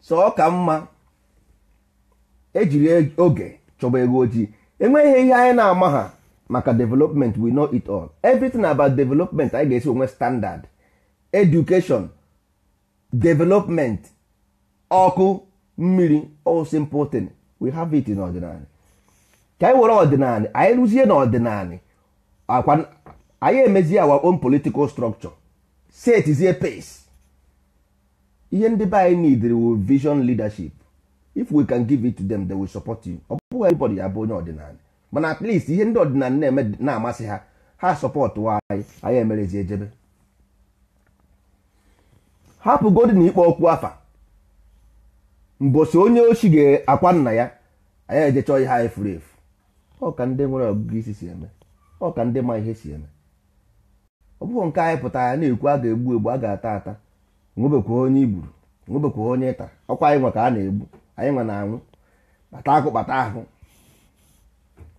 so ọ ka mma ejiri oge chọba ego ojii enweghị ihe anyị na-ama ha maka development we know it all everything about development anyị ga-esi onwe standard education development ọkụ mmiri all simple thing we have it in ọdịnala ka anyị were ọdịnala anyị rụzie na anyị emezie our own political structure a pace ihe ndị be anyị need will vision leadership if we can give it to them they will support you ọ bụghị everybody ya bụ onye mana at ihe ndị ọdịnala na-eme na-amasị ha ha sọpọtụ anyị anyị emerezi ejebe hapụ godin ikpe okwu afa mbosi onye ochi ga-akwa nna ya anyị ejechọ ihe anyị furu efu ọ ka ndị nwere ọgụgụ isi si eme ọ ka ndị ma ihe si eme ọ bụghị nke anyị pụta ya na-ekwu a ga-egbu egbu a ga-ata ata nwebekwa onye igburu nwebekwa onye ịta ọkwa anyị nwe ka a na-egbu anyị nwe na anwụ kpata akụ kpata ahụ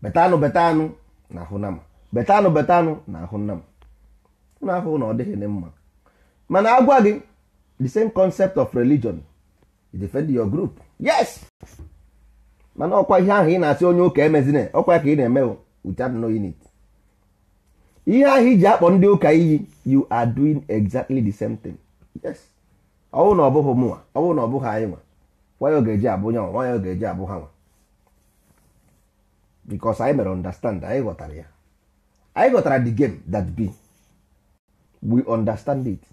betanụ betanụ na ahụ nama betanụ betanụ na ahụ nama n'afọ na ọ dịghị mma mana agwa gị the same concept of religion you defend your group yes mana ọkwa ihe ahụ ị na-asị onye ụka emezina ọkwa ka ị na-eme without unit ihe ahụ iji akpọ ndị ụka iyi you are doing exactly the same thing yes ọwụ na ọbụghị bụghị mụnwa ọwụ na ọbụghị anyị nwa nwa ya ọ ga-eji abụ ọ ga-eji abụ ha nwa because anyị mere understand anyị ghọtara ya anyị ghọtara the game that be we understand it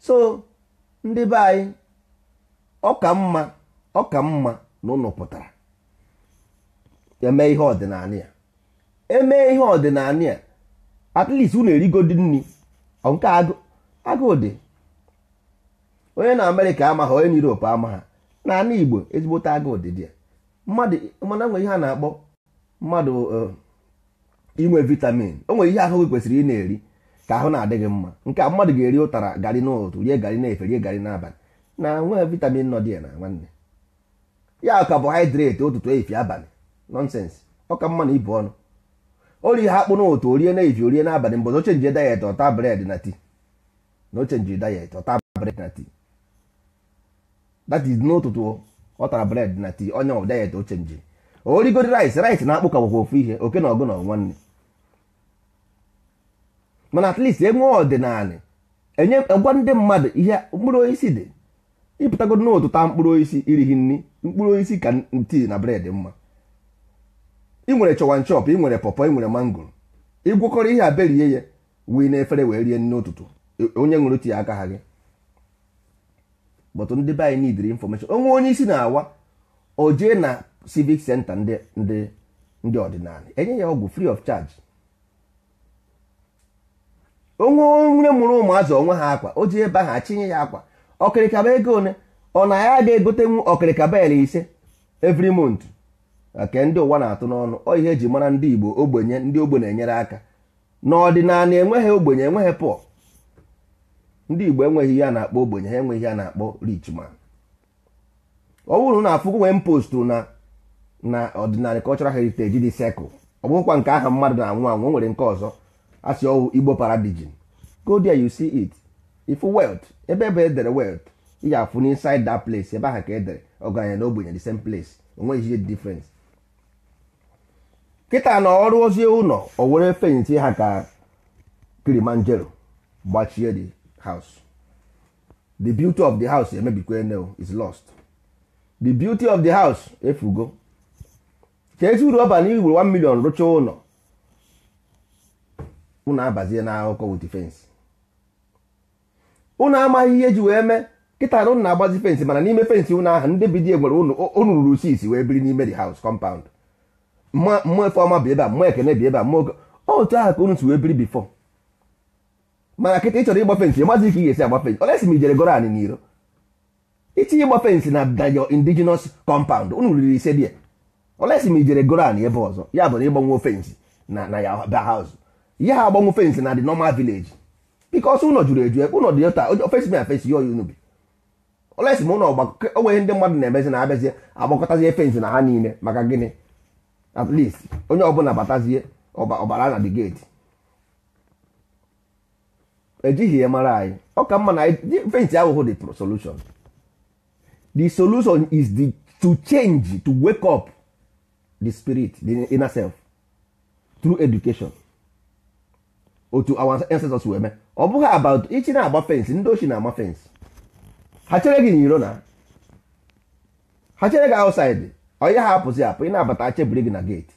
so ndị be anyị ọka mma ọka mma na ụlọ pụtara eme ihe ọdịnala ya eme ihe ọdịnala ya at least unu erigodi nri nke agụ dị onye na amerịka amaghị onye na europe amaghị na igbo ezigbote agụ ụdịdị mmadụ nwere ihe a na-akpọ mmadụ eh, inwe vitamin o nwere ihe ahụ gị kwesịrị ị na-eri ka ahụ na-adị gị mma nke a mmadụ ga-eri ụtara garị n'ụtụ rie garị na-efe rie garị n'abalị na nwee vitamin nọ dị ya na nwanne ya carbohydrate ụtụtụ efi abalị nonsense ọka mma na ibu ọnụ ori ihe akpụ n'ụtụ orie na efi orie n'abalị mgbe na ochenji dayet ọta bred na tii na ochenji diet ọta bred na tii that is n'ụtụtụ ọ tara bread na tii onye diet o chenji origori rice rice na-akpụ ka ofu ihe oke na ọgụ na nwanne mana at least enwe ọdịnala enye gwa ndị mmadụ ihe mkpụrụ osisi dị ịpụtago n'ụtụ taa mkpụrụ osisi irighi nri mkpụrụ osisi ka tii na bred mma ị nwere chọwan chọp ị nwere pọpọ ị nwere mangoro ịgwọkọrọ ihe a berie ya wee na efere wee rie nne ụtụtụ onye ṅụrụ tii aka ha gị but ndị be anyị nidiri infọmeshọn onwe onye isi na-awa o jee na civic senta ndị ndị ọdịnala enye ya ọgwụ free of charge onwe onye mụrụ ụmụazụ onwe ha akwa o ji ebe aha achinye ya akwa ọkịrịkaba ego one ọ na ya ga-egotenwu ọkịrịkaba ele ise every mont nke ndị ụwa na-atụ n'ọnụ ọ ihe eji mara ndị Igbo ogbenye ndị ogbenye enyere aka n'ọdịnala enweghị ogbenye enweghị pụọ ndị igbo enweghị ihe a na-akpọ ogbenye ha enweghị ihe a na-akpọ rich ọ bụrụ na afụgo nwee post na na ọdịnala cultural heritage dị sekụl ọ bụghịkwa nke aha mmadụ na-anwụ anwụ nwere nke ọzọ sị ọwụ igbo paradigin go there you see it if wealth ebe ebe edere wealth ị ga-afụ n'inside that place ebe aha ka edere ọgaranya na ogbenye the same place onweghị ihe difference kịta na ọrụ ozi ụlọ o were fenti ha ka Kilimanjaro gbachie dị house the beauty of the house emebikwa ene is lost the beauty of the house efugo ka uru ọba na iwuru 1 million rụchaa ụlọ unu abazie na akụkọ with fence unu amaghị ihe ji wee mee kịta na unu agbazi fensị mana n'ime fensị ụnụ ahụ ndị bidi egwere unu ruru isi wee biri n'ime the house compound mmụọ bụ ebe a ekene bi ebe a mmụọ otu ahụ wee biri before mana kịta ị chọrọ ịgba fensị mazi ka ị ga-esi agba fensị olesi ma ijere goro anyị n'iro itinye ịgba fensị na dayo indigenous compound unu riri ise dị ya olesi ma ijere goro anyị ebe ọzọ ya bụ na ịgbanwe fensị na na ya ba haus ya ha agbanwe fensị na the normal village bikos ụlọ juru eju ụlọ dị ota ofesi ma fensị ya oyi unu bi olesi ma ụlọ onweghị ndị mmadụ na-emezi na abịazie agbakọtazie fensị na ha niile maka gịnị at least onye ọbụla batazie ọbara na the gate ejighị ya mara anyị ọ ka mma na fenti ahụhụ dị solution the solution is the, to change to wake up the spirit the inner self through education otu our ancestors wee mee ọ bụghị about ichi na-agba fensị ndị ochie na-agba fensị ha chere gị n'iro na ha chere gị outside onye ha apụzi apụ ị na-abata chebiri gị na gate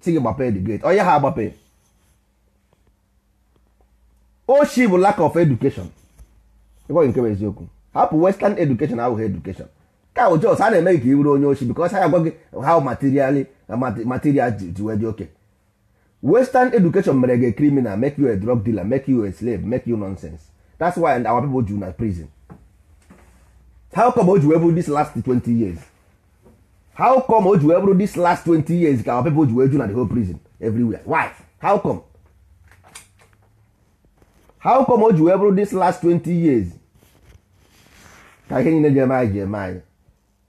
si gị gbapee the gate onye ha agbape oshi bụ lack of education ịgwaghị nke bụ eziokwu hapụ western education ahụghị education ka bụ jos a na-eme ka ị bụrụ onye oshi because ha agwa gị how materially uh, material ji wee dị oke western education mere gị criminal make you a drug dealer make you a slave make you nonsense that's why our people ju na prison how come o ji wee bụrụ this last 20 years how come o ji wee bụrụ this last 20 years ka our people ji wee ju na the whole prison everywhere why how come how come o ji wee bụrụ this last 20 years ka ihe niile ji eme anyị ji eme anyị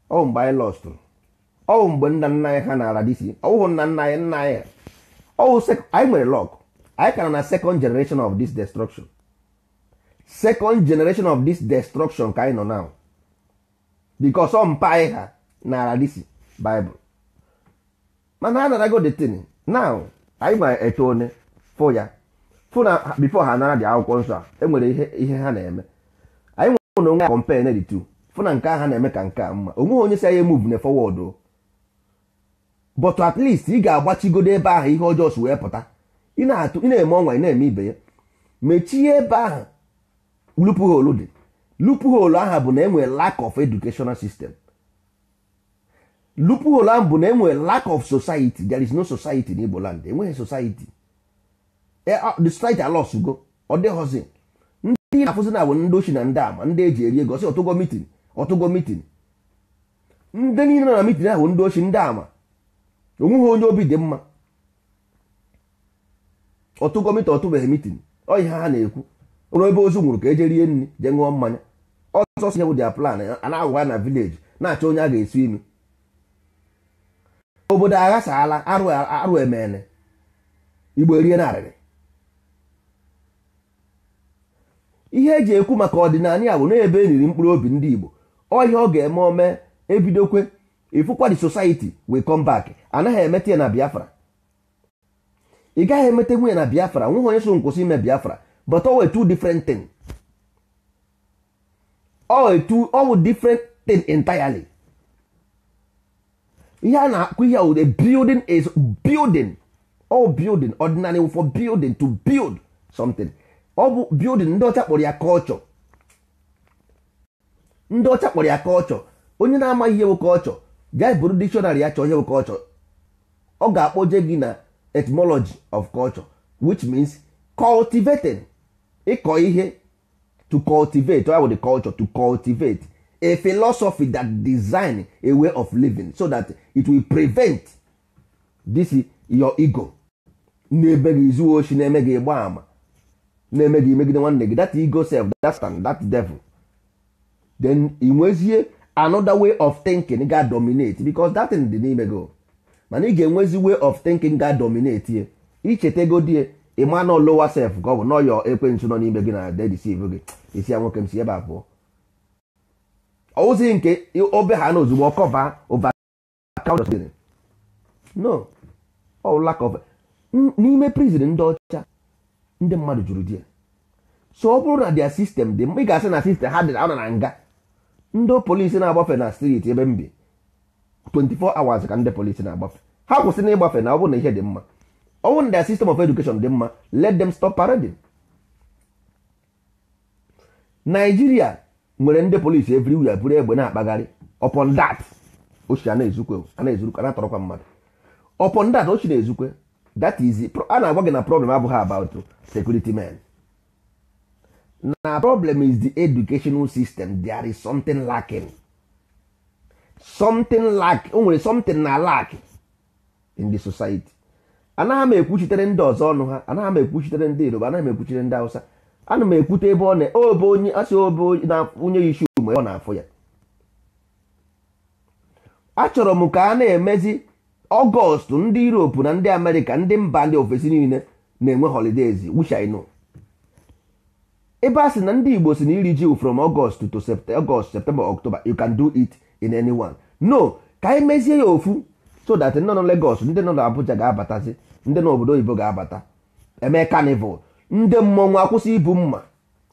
ọwụ mgbe anyị lọstụ ọwụ mgbe nna nna anyị ha nara disi ọwụhụ nna nna anyị nna anyị ọwụ anyị nwere lọk anyị kara na second generation of this destruction second generation of this destruction ka anyị nọ now because ọ mpa anyị ha nara disi Bible mana a narago detin now anyị ma eto one fụ ya fụ na bifo ha nara dị akwụkwọ nsọ a enwere ihe ihe ha na-eme anyị nwere onwe ya compare na fụ na nke ha na-eme ka nke a mma onweghị onye si anyị move na forward but at least ị ga-agbachigodo ebe ahụ ihe ọjọọ si wee pụta ị na-eme ọnwa ị na-eme ibe ya mechie ebe ahụ loophole dị loophole ahụ bụ na enwere lack of educational system loophole ahụ bụ na enwere lack of society there is no society n'Igbo land enweghị society the strike alos go ọ dịghọzi ndị na-afụzi na bụ ndị ochi na ndị ama ndị eji eri ego sị ọtụgo mitin ọtụgo mitin ndị niile na mitin ahụ ndị ochi ndị ama onweghị onye obi dị mma ọtụgo mitin ọtụbeghị mitin ọ ihe ha na-ekwu ụlọ ebe ozu nwụrụ ka eje rie nri jee ṅụọ mmanya ọsọ si nyewu dia plan a na-agwa na vileji na-achọ onye a ga-esi imi obodo aghasaala arụ emene igbo erie narịrị ihe eji ekwu maka ọdịnala ya bụ na ebe eriri mkpụrụ obi ndị Igbo ọhịa ọ ga-eme ome ebidokwe ifụkwa the society we come back anaghị emeta ya na Biafra ị gaghị emeta nwunye na Biafra nweghị onye so nkwụsị ime Biafra but owe two different thing owe two owe different thing entirely ihe a na-akụ ihe ude building is building all building ordinary for building to build something ọ bụ building ndị ọcha kpọrọ ya culture ndị ọcha kpọrọ ya culture onye na-amaghị ihe bụ culture gaa buru dictionary ya chọọ ihe bụ ọ ga-akpọje gị na etymology of culture which means cultivating ịkọ ihe to cultivate or the culture to cultivate a philosophy that design a way of living so that it will prevent this your ego na-ebe gị zuo oshi na-eme gị ịgba ama na-eme gị megide nwanne gị that ego self that stand devil then ị nwezie another way of thinking ga dominate because that thing dị n'ime gị mana ị ga-enwezi way of thinking ga dominate ye ego die ịma na lower self ka ọ bụ nọ yọ ekwentị nọ n'ime gị na dedisiv gị isi ya nwoke m si ebe a pụọ ozi nke obe ha na ozugbo kọba ụba no all lack of n'ime prison ndị ọcha ndị mmadụ jụrụ di ya so ọ bụrụ na dia sistem dị mma ị ga-asị na sistem ha dị na na nga ndị polisi na-agbafe na street ebe m bi 24 hours ka ndị polisi na-agbafe ha kwụsị na ịgbafe na ọ bụrụ na ihe dị mma ọ bụrụ na sistem of education dị mma let them stop parading Naijiria nwere ndị polisi everywhere buru egbe na-akpagharị upon that ochi a na-ezukwe a na-ezurukwe na-atọrọkwa mmadụ upon that ochi na-ezukwe that is a na-agwa gị na problem abụghị about security men na problem is the educational system there is something lacking something lack o nwere something na lack in the society anaghị m ekwuchitere ndị ọzọ ọnụ ha anaghị m ekwuchitere ndị iroba anaghị m ekwuchitere ndị Hausa ana m ekwute ebe ọ na obe onye asị obe na onye isi ume ọ na-afụ ya achọrọ m ka a na-emezi ọgọst ndị europe na ndị amerịka ndị mba ndị ofesi niile na-enwe holidays which ebe a sị na ndị igbo si na iri ji from ọgọst to ọgọst september october you can do it in no ka anyị mezie ya ofu so that nọ na ndị nọ n'abuja ga-abatazi ndị nọ obodo oyibo ga-abata eme carnival ndị mmọnwụ akwụsị ibu mma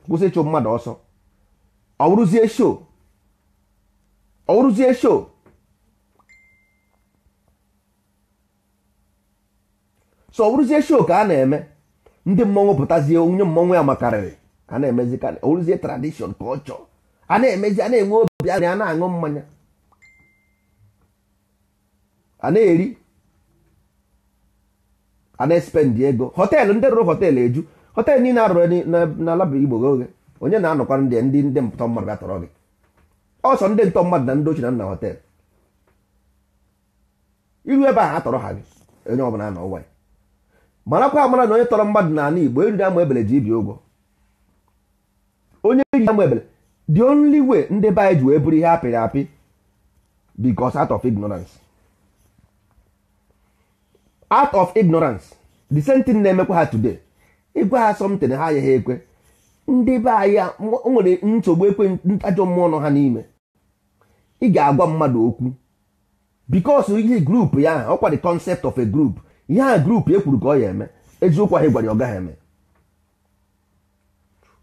kwụsị ịchụ mmadụ ọsọ ọ wụrụzie show ọ wụrụzie show so ọ shoo ka a na-eme ndị mmọnwụ pụtazie onye mmọnwụ ya makarịrị a na-emezi ka tradishọn ka ọ chọọ a na-emezi a na-enwe obi a na-aṅụ mmanya a na-eri a na-espendi ego họteelụ ndị rụrụ họteelụ eju họteelụ niile arụrụ n'ala Igbo oge onye na-anọkwa ndị ndị ndị ntọ mmadụ gatọrọ gị ọsọ ndị ntọ mmadụ na ndị ochie na nna họteelụ iru ebe ahụ atọrọ ha gị onye ọbụla nọ ụwa ya marakwa amara na onye tọrọ mmadụ n'ala Igbo eriri ama ebele ji ibi ụgwọ onye ji ama ebele the only way ndị be anyị ji wee bụrụ ihe apịrị apị bicos out of ignorance out of ignorance the same thing na-emekwa ha today ịgwa ha somtin ha agaghị ekwe ndị be anyị nwere nsogbu ekwe ntajọ mmụọ nọ ha n'ime ị ga-agwa mmadụ okwu because ihe grup ya ọkwa the concept of a group ihe a grupu ekwuru ka ọ ya eme eziokwu ahụ gwara ya ọ gaghị eme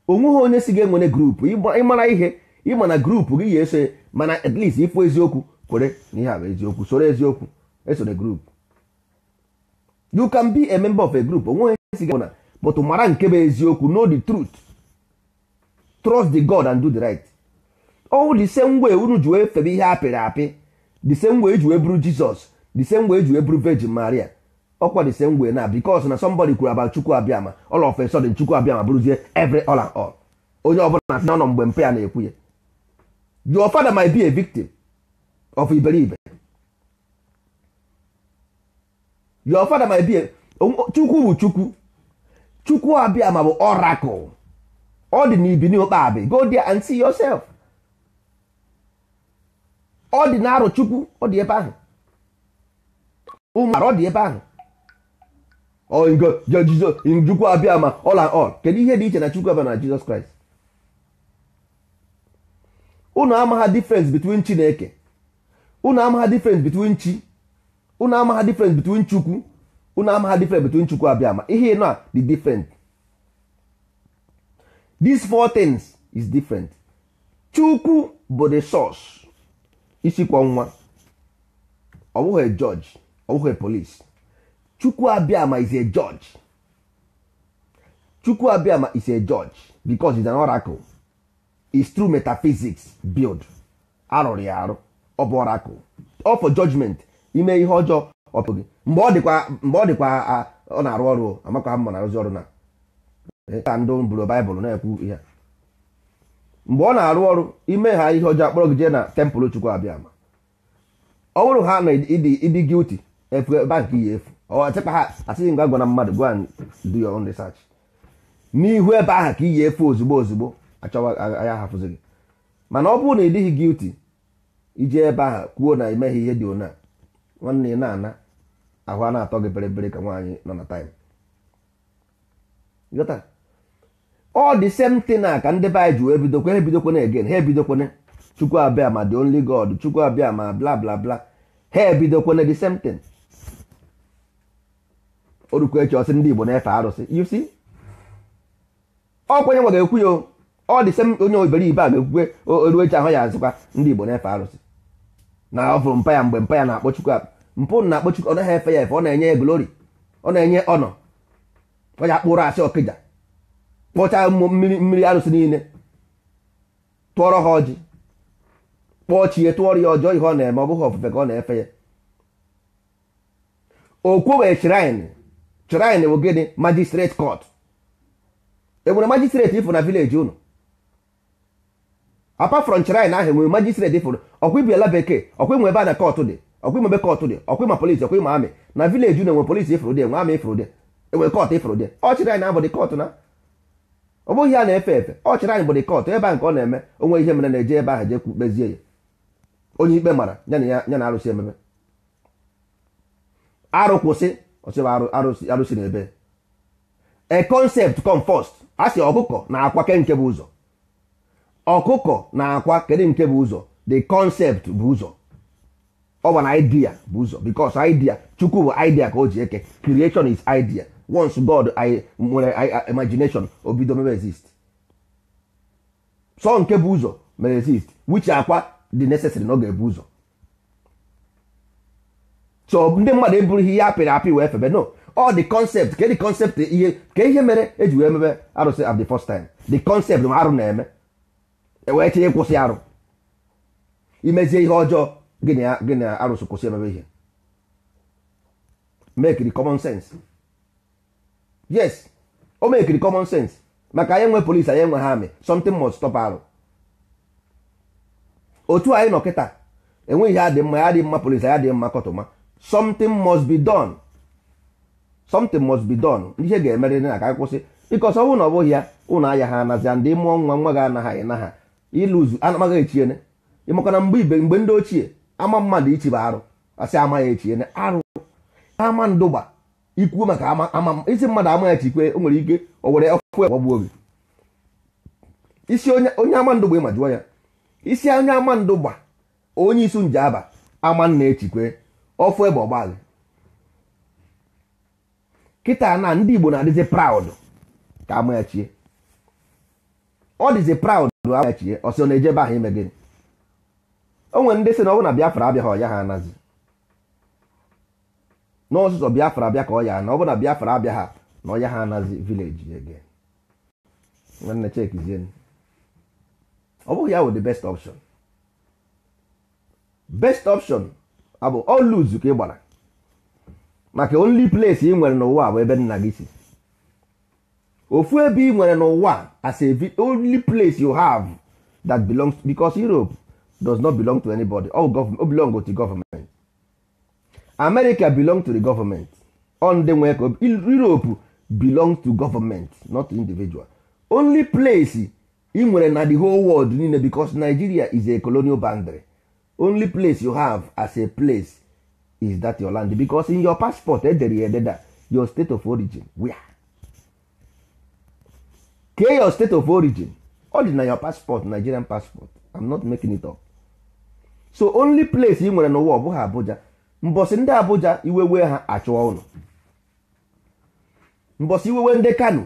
onweghị onye si ga-enwere grupu ịmara ihe ịma na grupu gị ya eso mana at least ịfụ eziokwu kwere na ihe a bụ eziokwu soro eziokwu esoro grupu you can be a member of a group onweghị onye si ga-enwere but mara nke bụ eziokwu know the truth trust the God and do the right all the same way unu ji wee febe ihe apịrị apị the same way e ji wee bụrụ Jizọs the same way e ji wee bụrụ Virgin Maria Ọ the same na because na somebody kwuru about chukwu abịama all of a chukwu abịama bụrụzie every all and all onye ọbụla na-asị na ọnọ mgbe mpe ya na-ekwu ya your father might be a victim of iberibe your father might be a chukwu bụ chukwu chukwu abịama bụ oracle ọ dị n'ụkpa abị go there and see yourself ọ dị na arụ chukwu ọ dị ebe ahụ ụmụ ọ dị ebe ahụ chukwu abịa ma ọla all kedu ihe dị iche na chukwu abịa na jizọs kraịst unu amagha difference between chineke unu amagha difference between chi unu amagha difference between chukwu unu amagha difference between chukwu abịa ma ihe a dị different these four things is different chukwu bụ the source isi nwa ọ bụghị judge ọ bụghị police chukwuabiama is a judge chukwuabiama is a judge because he's an oracle is true metaphysics build arụrụ ya arụ ọ bụ oracle ọ for judgment ime ihe ọjọọ ọpụ gị mgbe ọ dịkwa mgbe ọ dịkwa ọ na-arụ ọrụ amakwa mma na-arụzi ọrụ na ka ndị bụrụ baịbụl na-ekwu ihe mgbe ọ na-arụ ọrụ ime ha ihe ọjọọ akpọrọ gị jee na tempụl chukwuabiama ọ bụrụ ha na ịdị gilti efu ebe nke ya efu asịghị mgbe a gwara mmadụ gwa and do your own research n'ihu ebe ahụ ka iyi efe ozugbo ozugbo achọwa ya hafụzi gị mana ọ bụrụ na ị dịghị guilty ije ebe ahụ kwuo na emeghị ihe dị ona nwanne na-ana ahụ a na-atọ gị beriberi ka nwaanyị nọ na time ọ dị same thing na ka ndị be anyị ji wee bidokwa ha ebidokwana again ha ebidokwana chukwu abịa ma the only god chukwu abịa ma bla bla bla ha ebidokwana the same thing orukwa echi ọsị ndị Igbo na-efe arụsị you see nwa ga-ekwu ya ọ dị sem onye iberibe a ga-ekwukwe oru echi ahụ ya azịkwa ndị Igbo na-efe arụsị na ọ fụrụ mpa ya mgbe mpa ya na-akpọ Chukwu mpụ na-akpọ Chukwu ọ naghị efe ya efe ọ na-enye ya glori ọ na-enye ọnọ ọ ya kpụrụ asị ọkịja kpọchaa mmiri mmiri arụsị niile tụọrọ ha ọjị kpọọ chi tụọrọ ya ọjọọ ihe ọ na-eme ọ bụghị ofufe ka ọ na-efe ya o kwowe shrine shrine bụ gịnị magistrate court enwere magistrate ifụ na village unu apart from shrine ahụ enwere magistrate ifụ ọkwa ibi bekee ọkwa ịnwe ebe a na court dị ọkwa ịnwe ebe court dị ọkwa ịma polisi ọkwa ịma amị na village unu enwere polisi ifụrụ dị enwe amị ifụrụ dị enwere court ifụrụ dị ọchịrị anyị na-abụ dị court na ọ bụghị ya na-efe efe ọchịrị anyị bụ dị court ebe a nke ọ na-eme onwe ihe mere na-eje ebe ahụ jee kpezie ya onye ikpe mara ya na arụsị ememe arụ kwụsị ọchịba arụsị na ebe a concept come first a sị ọkụkọ na akwa nke bụ ụzọ ọkụkọ na akwa kedu nke bụ ụzọ the concept bụ ụzọ ọ bụ na idea bụ ụzọ because idea chukwu bụ idea ka o ji eke creation is idea once god i nwere imagination obido mere exist so nke bụ ụzọ mere exist which akwa dị necessary na ọ ga-ebu ụzọ so ndị mmadụ eburughị ihe apịrị apị wee febe no all the concept ke dị concept ihe ke ihe mere eji wee mebe arụsị at the first time the concept ma arụ na-eme ewee tinye kwụsị arụ imezie ihe ọjọọ gịnị na arụsị kwụsị emebe ihe make the common sense yes o make the common sense maka anyị nwe polisi anyị nwe ha amị something must stop arụ otu anyị nọ kịta enweghị ihe dị mma ya dị mma polisi ya dị mma kọtụma something must be done something must be done ihe ga-emerịrị na ka anyị kwụsị bikos ọ bụrụ na ọ bụghị ya ụlọ ahịa ha anazia ndị mụọ nwa nwa ga anaghị na ha ịlụzu anamaghị echiene ịmaka mgbe ibe mgbe ndị ochie ama mmadụ ichibe arụ asị amaghị echiene arụ ama ndụgba ikwu maka ama isi mmadụ amaghị echikwe o nwere ike o were ọkụ ọgbagbu obi isi onye ama ndụgba ịma ya isi onye ama ndụgba onye isu nje aba ama nna echikwe ọfụ ebe ọgbaghị kịta na ndị Igbo na-adịzi proud ka amachie ọ dịzi proud amachie ọsị ọ na-ejebe ahụ ime gịnị o nwere ndị sị na ọ bụ na Biafra abịaghị ọya ha anazi n'ọsụsọ Biafra abịa ka ọ ya na ọ bụ na Biafra abịaghị na ọya ha anazi vileji ege nwanne chekizie ọ bụghị ya wụ the best option best option abụ oluzu ka ị gbara maka only place ị nwere n'ụwa bụ ebe nna gị si ofu ebe ị nwere n'ụwa as a only place you have that belongs because Europe does not belong to anybody all government, belong to government America belong to the government on the way Europe belong to government not individual only place ị nwere na the whole world niile because Nigeria is a colonial boundary only place you have as a place is that your land because in your passport edere ya ededa your state of origin where kee your state of origin ọ dị na your passport nigerian passport i'm not making it up so only place ị nwere n'ụwa ọ abuja mbosi ndị abuja iwewe wee ha achụọ ụnụ mbọsị iwewe ndị kano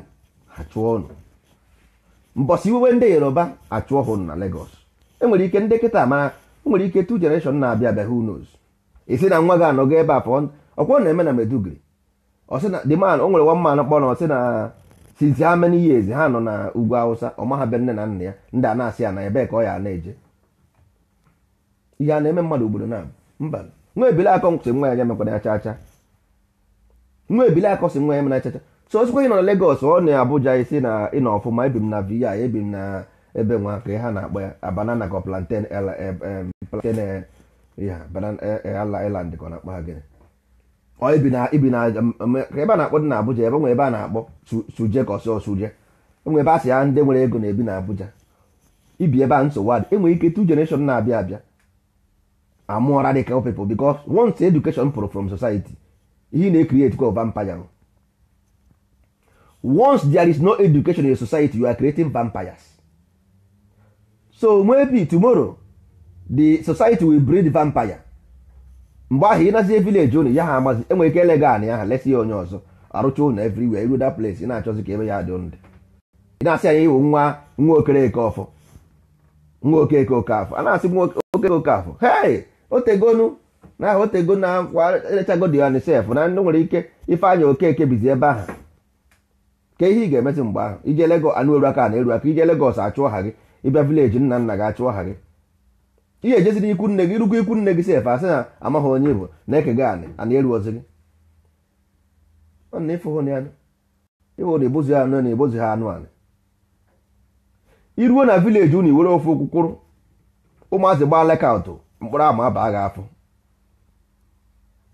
achụọ ụnụ mbosi iwewe ndị yoruba achụọ ha ụnụ na lagos enwere ike ndị kịta mara o nwere ike tu generation na-abịa abịa who knows isi na nwa gị anọgo ebe a pụọ ọkwọ na-eme na medugri ọsị na the man o nwere one man kpọrọ na ọsị na since how many years ha nọ na ugwu awụsa ọmahabịa nne na nna ya ndị a na-asị ya na ebe ka ọ ya na-eje ihe a na-eme mmadụ obodo na mba nwa ebile akọ si nwa ya mekwara ya chacha nwa ebile akọ si nwa ya mere chacha so osikwa ị nọ na Lagos ọ na Abuja isi na ịnọ ọfụma ebi m na VI ebi m na ebe nwa ka ha na-akpọ ya banana ka plantain e, e, plantain e, ala island ka ọ na-akpọ ha gịnị ibi na na ka ebe a na-akpọ dị na Abuja ebe nwe ebe a na-akpọ suje ka ọsọ suje enwe ebe a sị ya ndị nwere ego na-ebi na Abuja ibi ebe a nsogbu adị enwere ike two generation na-abịa abịa amụọ radical people because once education pụrụ from society ihe na-ecreate kwa vampire once there is no education in society you are creating vampires so maybe tomorrow the society will breed vampire mgbe ahụ ịnazie village unu ya ha amazi enwe ike ele gị ya ha lesi ya onye ọzọ arụcha ụnụ everywhere iru that place ị na-achọzi ka ebe ya dị ndị ị na-asị anyị iwu nwa nwa okereke ọfọ nwa okeke oke afọ a na-asị nwa okeke oke afọ hei otegonu na aha otego na kwa erechago ya on na ndị nwere ike ife anya okeke bizi ebe ahụ ka ihe ị ga-emesi mgbe ahụ ije Lagos anụ eru aka na eru aka ije legos achụ ọha gị ịbịa vileji nna nna gị achụọ aha gị ihe ejeziri ikwu nne gị rugwu ikwu nne gị sef asị na amaghị onye bụ na ekega anị ana eruozi gị ịwụrụ ebozi anụ na ebozi ha anụ anị iruo na vileji unu iwere ofe okwukwụrụ ụmụazị gbaa lekaụtụ mkpụrụ ama abaa gị afọ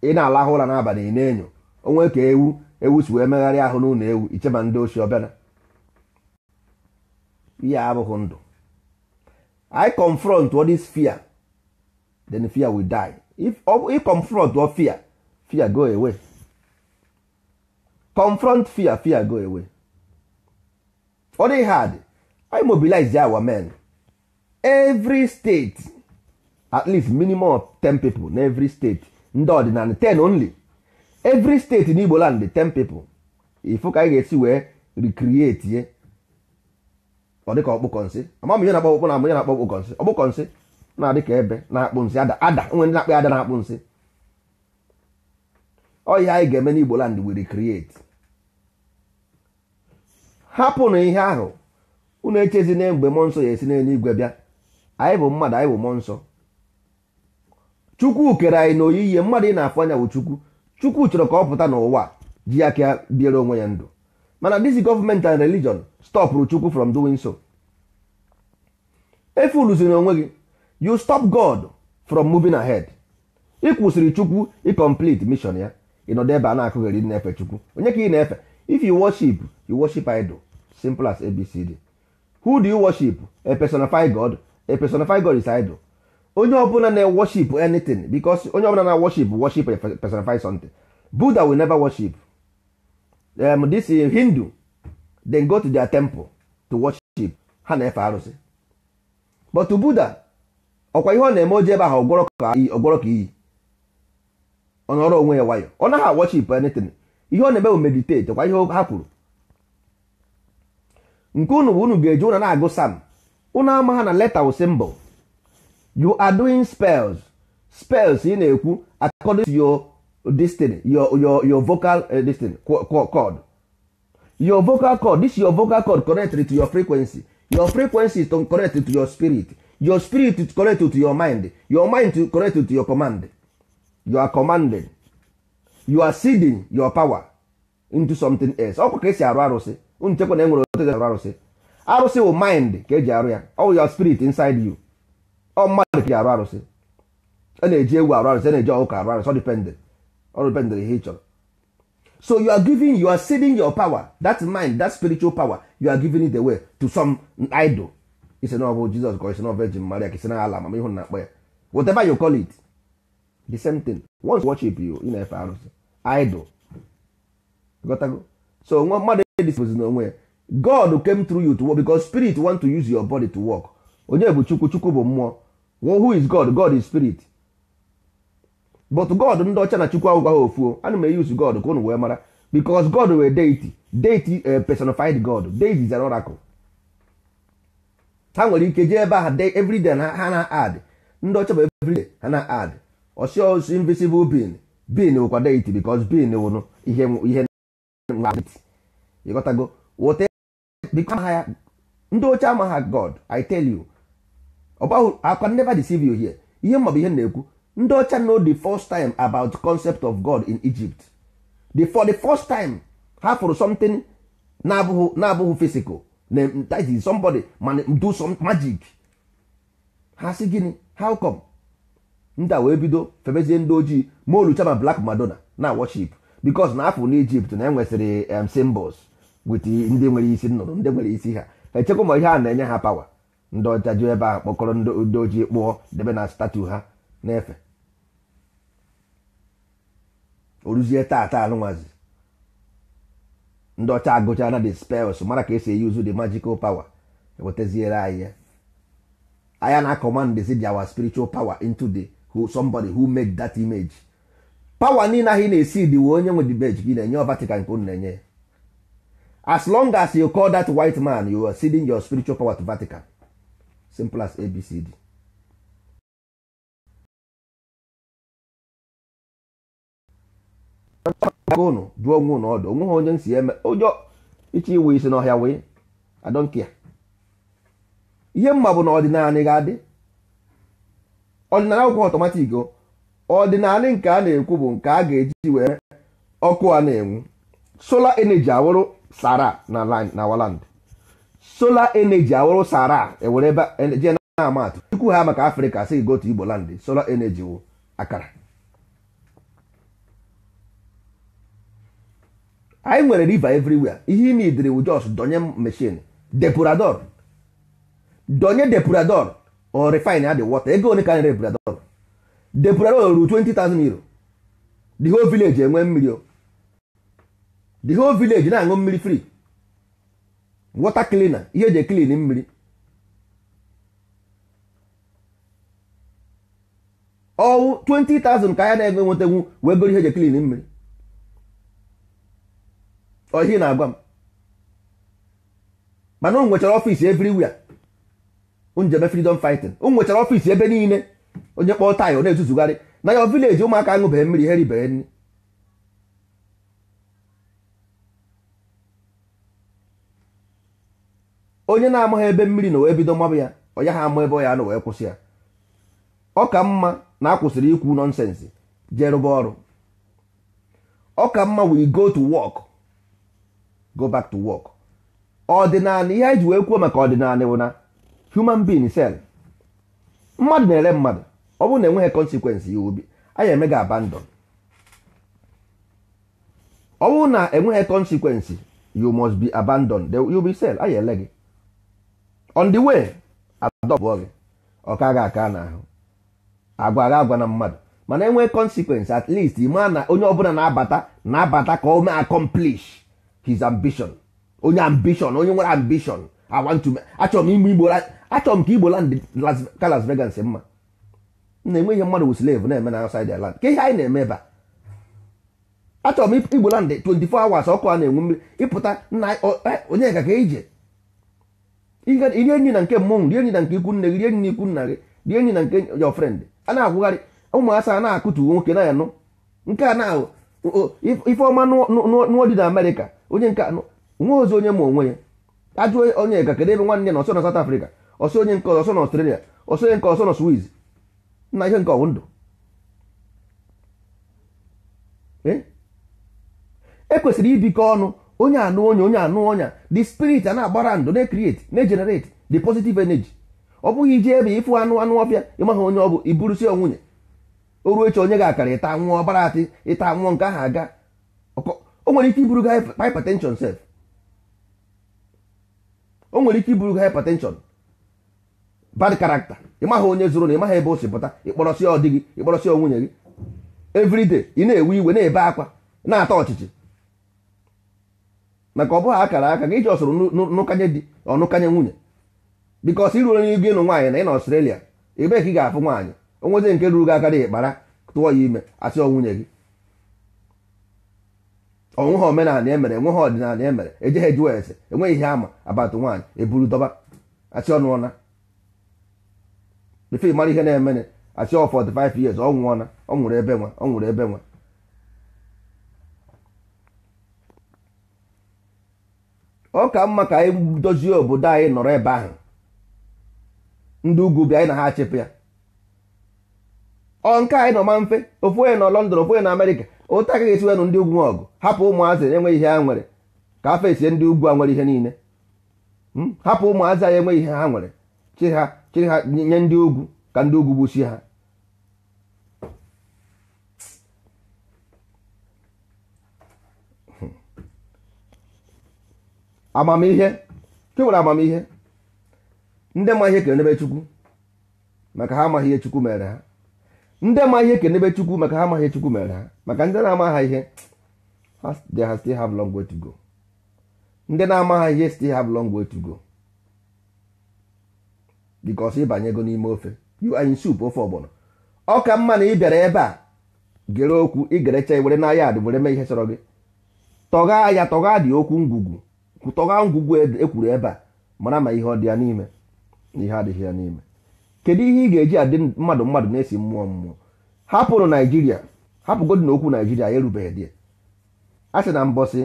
ị na-alahụ ụra n'abalị ị na-enyo onwe ka ewu ewu si wee megharịa ahụ n'ụlọ ewu icheba ndị ochie ọbịara ihe abụghị ndụ i confront what is fear then fear will die if if confront what fear fear go away confront fear fear go away all they had i mobilize there our men every state at least minimum of 10 people in every state ndị ọdịnala 10 only every state in igbo land 10 people ifu ka anyị ga-esi wee recreate ọ dịka ọkpụkọ nsị ama m ihe na-akpọ ọkpụkọ na ama na-akpọ ọkpụkọ nsị ọkpụkọ nsị na-adị ka ebe na-akpụ nsị ada ada nwe ndị na-akpụ ada na-akpụ nsị ọ ihe anyị ga-eme n'Igbo land wiri create hapụ na ihe ahụ unu echezi na mgbe mmụọ nsọ ya esi n'eluigwe bịa anyị bụ mmadụ anyị bụ mmụọ nsọ chukwu kere anyị na oyiyi mmadụ ị na-afụ anya bụ chukwu chukwu chọrọ ka ọ pụta n'ụwa ji ya ya bịara onwe ya ndụ mana this government and religion stop chukwu from doing so efuluziri onwe gị you stop god from moving ahead ị kwụsịrị chukwu ị complete mission ya ịnọdụ ebe a na-akụgheri na-efe chukwu onye ka ị na-efe if you worship you worship idol simple as abcd who do you worship a personified god a personified god is idol onye ọbụla na-worship anything because onye ọbụla na-worship worship a personified something buddha will never worship um, this hindu then go to their temple to worship ha na-efe arụsị but buddha ọkwa ihe ọ na-eme oji ebe ahụ ọgwọrọ ka iyi ọ nọrọ onwe ya nwayọ ọ naghị worship anything ihe ọ na-eme bụ meditate ọkwa ihe ha kwuru nke unu bụ unu ga-eji ụna na-agụ sam unu ama ha na leta wụ symbol you are doing spells spells ị na-ekwu according to your this your your your vocal uh, this thing your vocal chord. this your vocal chord. connect to your frequency your frequency is connect to your spirit your spirit is connect to your mind your mind is connect to your command you are commanding. you are seeding your power into something else ọkwa ka esi arụ arụsị unu chekwa na enwere otu e arụ arụsị arụsị wụ mind ka eji arụ ya ọ your spirit inside you ọ mmadụ ka e arụ arụsị a na-eji ewu arụ arụsị a na-eji ọkụkọ arụ arụsị ọ dependent or bendrahechor so you are giving you are saving your power that mind that spiritual power you are giving it away to some idol It's not about Jesus, ka isi na virgin maria ka isi na ala na akpọ ya whatever you call it the same thing once you worship you ị na-efe arụsị idol gotago so nwa mmadụ this n'onwe ya god came through you to work because spirit want to use your body to work onye bụ chukwu chukwu bụ mmụọ who is god god is spirit but god ndị ọcha na chukwu agwụgwa ha ofuo ana m eyuzu god ka ụnụ wee mara because god were deity deity eh, personified god deity is an oracle ha nwere ike jee ebe ahụ everyday ha na ad ndị ọcha bụ everyday ha na ad osi oh, osi invisible being being wụkwa deity because being wụrụ ihe ihe ịghọtago wote ya ndị ọcha amaghị god i tell you ọbahụ akwa never deceive you here ihe mma ihe na-ekwu ndị ọcha no the first time about concept of God in Egypt the for the first time ha fụrụ something na-abụghị na-abụghị physical na that somebody man do some magic ha si gịnị how come ndị a wee bido febezie ndị ojii ma olucha blak black madonna na worship because na afọ n'Egypt na enwesịrị um, symbols with ndị nwere isi nnụrụ ndị nwere isi ha echekwa ma ihe a na-enye ha pawa ndị ọcha ji ebe a kpọkọrọ ndị ojii kpụọ debe na statu ha n'efe oruzie taa taa alụnwazi ndị ọcha na the spells mara ka esi eyuzu the magical power ewetaziere anyị ya anya na commandsi dị our spiritual power into the who somebody who made that image power niile ahụ ị na-esi dị wee onye nwe dibeji gị na-enye Vatican nke unu na-enye as long as you call that white man you are ceding your spiritual power to Vatican simple as ABCD ụnụ jụọ onwe ụnụ ọdụ onwe ha onye si eme ụjọ ịchọ iwe isi n'ọhịa wee ihe mma bụ na ọdịnala ga-adị ọdịnala akwụkwọ ọtọmatik ọdịnala nke a na-ekwu bụ nke a ga-eji wee ọkụ a na-enwu sola energy awụrụ sara na waland sola energy awụrụ sara ewere ebe e, jee na-ama atụ chukwu ha maka afrịka si gotu igbo landị sola energy wụ akara anyị nwere river everywhere ihe ime idiri wu donye mechin depurador donye depurador or refine adị water ego one ka anyị depurador depurador ruru 20,000 euro the whole village enwe mmiri o the whole village na-aṅụ mmiri free water cleaner ihe eji clean mmiri ọwụ 20,000 ka anyị na enwe enwetenwu wee goro ihe eji clean mmiri ohi na-agwa m mana ụnụ nwechara ọfiisi everywhere njebe freedom fighting ụnụ nwechara ebe niile onye kpọọ taị ọ na ezuzugharị na ya vileji ụmụaka aṅụbeghị mmiri ha ribeghị nri onye na-amaghị ebe mmiri na wee bido mgbabụ ya onye ha ama ebe ọ ya na wee kwụsị ya ọ ka mma na akwụsịrị ikwu nọnsensị jee rụba ọrụ ọ ka mma we go to work go back to work ọdịnala ihe anyị wee kwuo maka ọdịnala bụ na human being cell mmadụ na-ere mmadụ ọ bụrụ na enweghị consequence ya obi anyị eme abandon ọ bụrụ na enweghị consequence you must be abandoned you be sell anyị ele gị on the way adọpụọ gị ọ ka aka n'ahụ agwa agwa na mmadụ mana enweghị consequence at least ịma na onye ọbụla na-abata na-abata ka o mee accomplish his ambition onye ambition onye nwere ambition I want to achọrọ m ime igbo achọrọ m ka igbo land ka Las Vegas mma na-enwe ihe mmadụ wu slave na-eme na outside their land ka ihe anyị na-eme ebe a achọrọ m igbo land 24 hours ọkụ a na-enwe mmiri ịpụta nna e, onye ka ka ije rie enyi na nke mmọnwụ rie enyi na nke ikwu nne gị rie enyi na ikwu nna gị rie enyi na nke your friend a na-akwụgharị ụmụasa a na-akụtu nwoke na ya nụ nke a na-ahụ ifeọma nụọ dị na Amerịka onye nke anọ ozi onye ma onwe ya ajụọ onye ga kedu ebe nwanne na ọsọ na South Africa ọsọ onye nke ọsọ na Australia ọsọ onye nke ọsọ na Swiss na ihe nke ọwụ ndụ ekwesịrị e ibikọ ọnụ onye anụ onye onye anụ ọnya the spirit a na-agbara ndụ na-ecreate na-egenerate the positive energy ọ bụghị ije ebe ịfụ anụ anụ ọbịa ịmaghị onye ọ bụ iburusi onwunye o ruo echi onye ga-akara ịta nwụọ ọbara atị ịta nwụọ nke ahụ aga o nwere ike iburu hypertension sef o nwere ike iburu gị hypertension bad character ị maghị onye zụrụ na ị maghị ebe o si pụta ịkpọrọsị ọ dị gị ịkpọrọsị nwunye gị everyday ị na-ewe iwe na-ebe akwa na-ata ọchịchị maka ọ bụghị akara aka gị ji ọsụrụ nụkanye di ọnụkanye nwunye bikos ị ruo n'igu ịnụ nwaanyị na ị na Australia ebee ka ị ga-afụ nwaanyị onwezi nke ruru gị aka dị ịkpara tụọ ya ime asị ọ nwunye gị ha omenala emere enweghị ọdịnala emere ejeghị ejuwa ese enweghị ihe ama abatụ nwaanyị eburu dọba achị ọnụ ọna mara ihe na-emere achị ọ 45 years ọ nwụọna ọ nwụrụ ebe nwa ọ nwụrụ ebe nwa ọ ka mma ka anyị dozie obodo anyị nọrọ ebe ahụ ndị ugwu bịa anyị na ha achịpụ ya ọ nke anyị nọ ma mfe ofu onye nọ London ofu onye na Amerịka ụta agaghị esiwenụ ndị ugwu ọgụ hapụ ụmụazị enweghị ihe ha nwere ka afọ esie ndị ugwu a nwere ihe niile hmm? hapụ ụmụazị anyị enweghị ihe ha nwere chịrị ha nye ndị ugwu ka ndị ugwu gbuchie ha hmm. amamihe chụwere amamihe ndị ma ihe kere n'ebe chukwu maka ha amaghị ihe chukwu mere ha ndị ma ihe kenebe chukwu maka ha amaghị chukwu mere ha maka ndị na-ama ha ihe ha still have long way to go ndị na-ama ha ihe still have long way to go because ịbanyego n'ime ofe you anyị in ofe ọgbọnọ ọ ka mma na ị bịara ebe a gere okwu igerecha were na ya adị were mee ihe chọrọ gị tọga ya tọga dị okwu ngwugwu tọgha ngwugwu ekwuru e ebe a mara ma ihe ọ dị ya n'ime na ihe adịghị ya n'ime kedu ihe ị ga-eji adị mmadụ mmadụ na-esi mmụọ mmụọ hapụrụ naijiria hapụgodị na okwu naijiria erubeghị dị a sị na mbọsị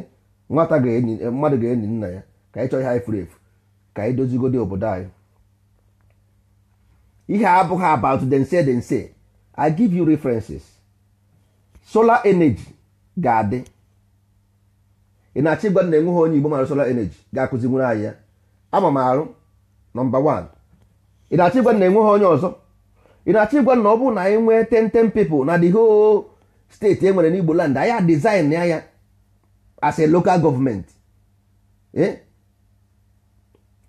nwata eh, mmadụ ga-enyi nna ya ka ị chọọ ihe anyị furu efu ka anyị dozigodị obodo anyị ihe abụghị about dense dense i give you references solar energy ga-adị ị na-achọ ịgwa na enweghị onye igbo mara solar energy ga-akụzi nwere anyị ya ama m arụ nọmba 1 ị na-achọ ịgwa na enweghị onye ọzọ ị na-achọ ịgwa na ọ bụrụ na anyị e nwee ten ten na the whole steeti e nwere n'Igbo land anyị design ya ya as a local government eh?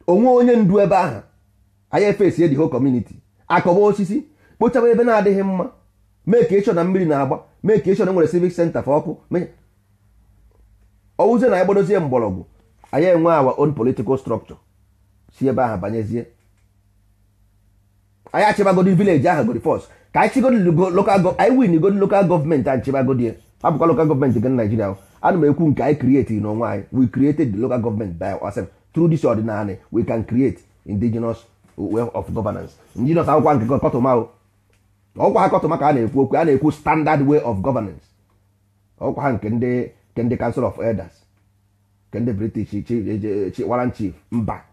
onwe onye ndu ebe ahụ anyị efesie the whole community akọba osisi kpochaba ebe na-adịghị mma mee ka ịchọ na mmiri na-agba mee ka ịchọ na e nwere civic center fa ọkụ ọwụzie na anyị gbadozie mgbọrọgwụ anyị enwe our own political structure si ebe ahụ banyezie anyị achịbagodi vileji ahụ godi fọs ka anyị chigodi lokal anyị win godi lokal gọọmenti anyị chịbagodi hapụkwa lokal gọọmenti government naijiria ana m ekwu nke anyị krieti n'onwe anyị we created the local government by ourselves through this ordinary we can create indigenous way of governance indigenous akwụkwọ nke kọtụma ọkwa ha kọtụma ka a na-ekwu okwu a na-ekwu standard way of governance ọkwa ha nke ndị council of elders nke ndị british warrant chief mba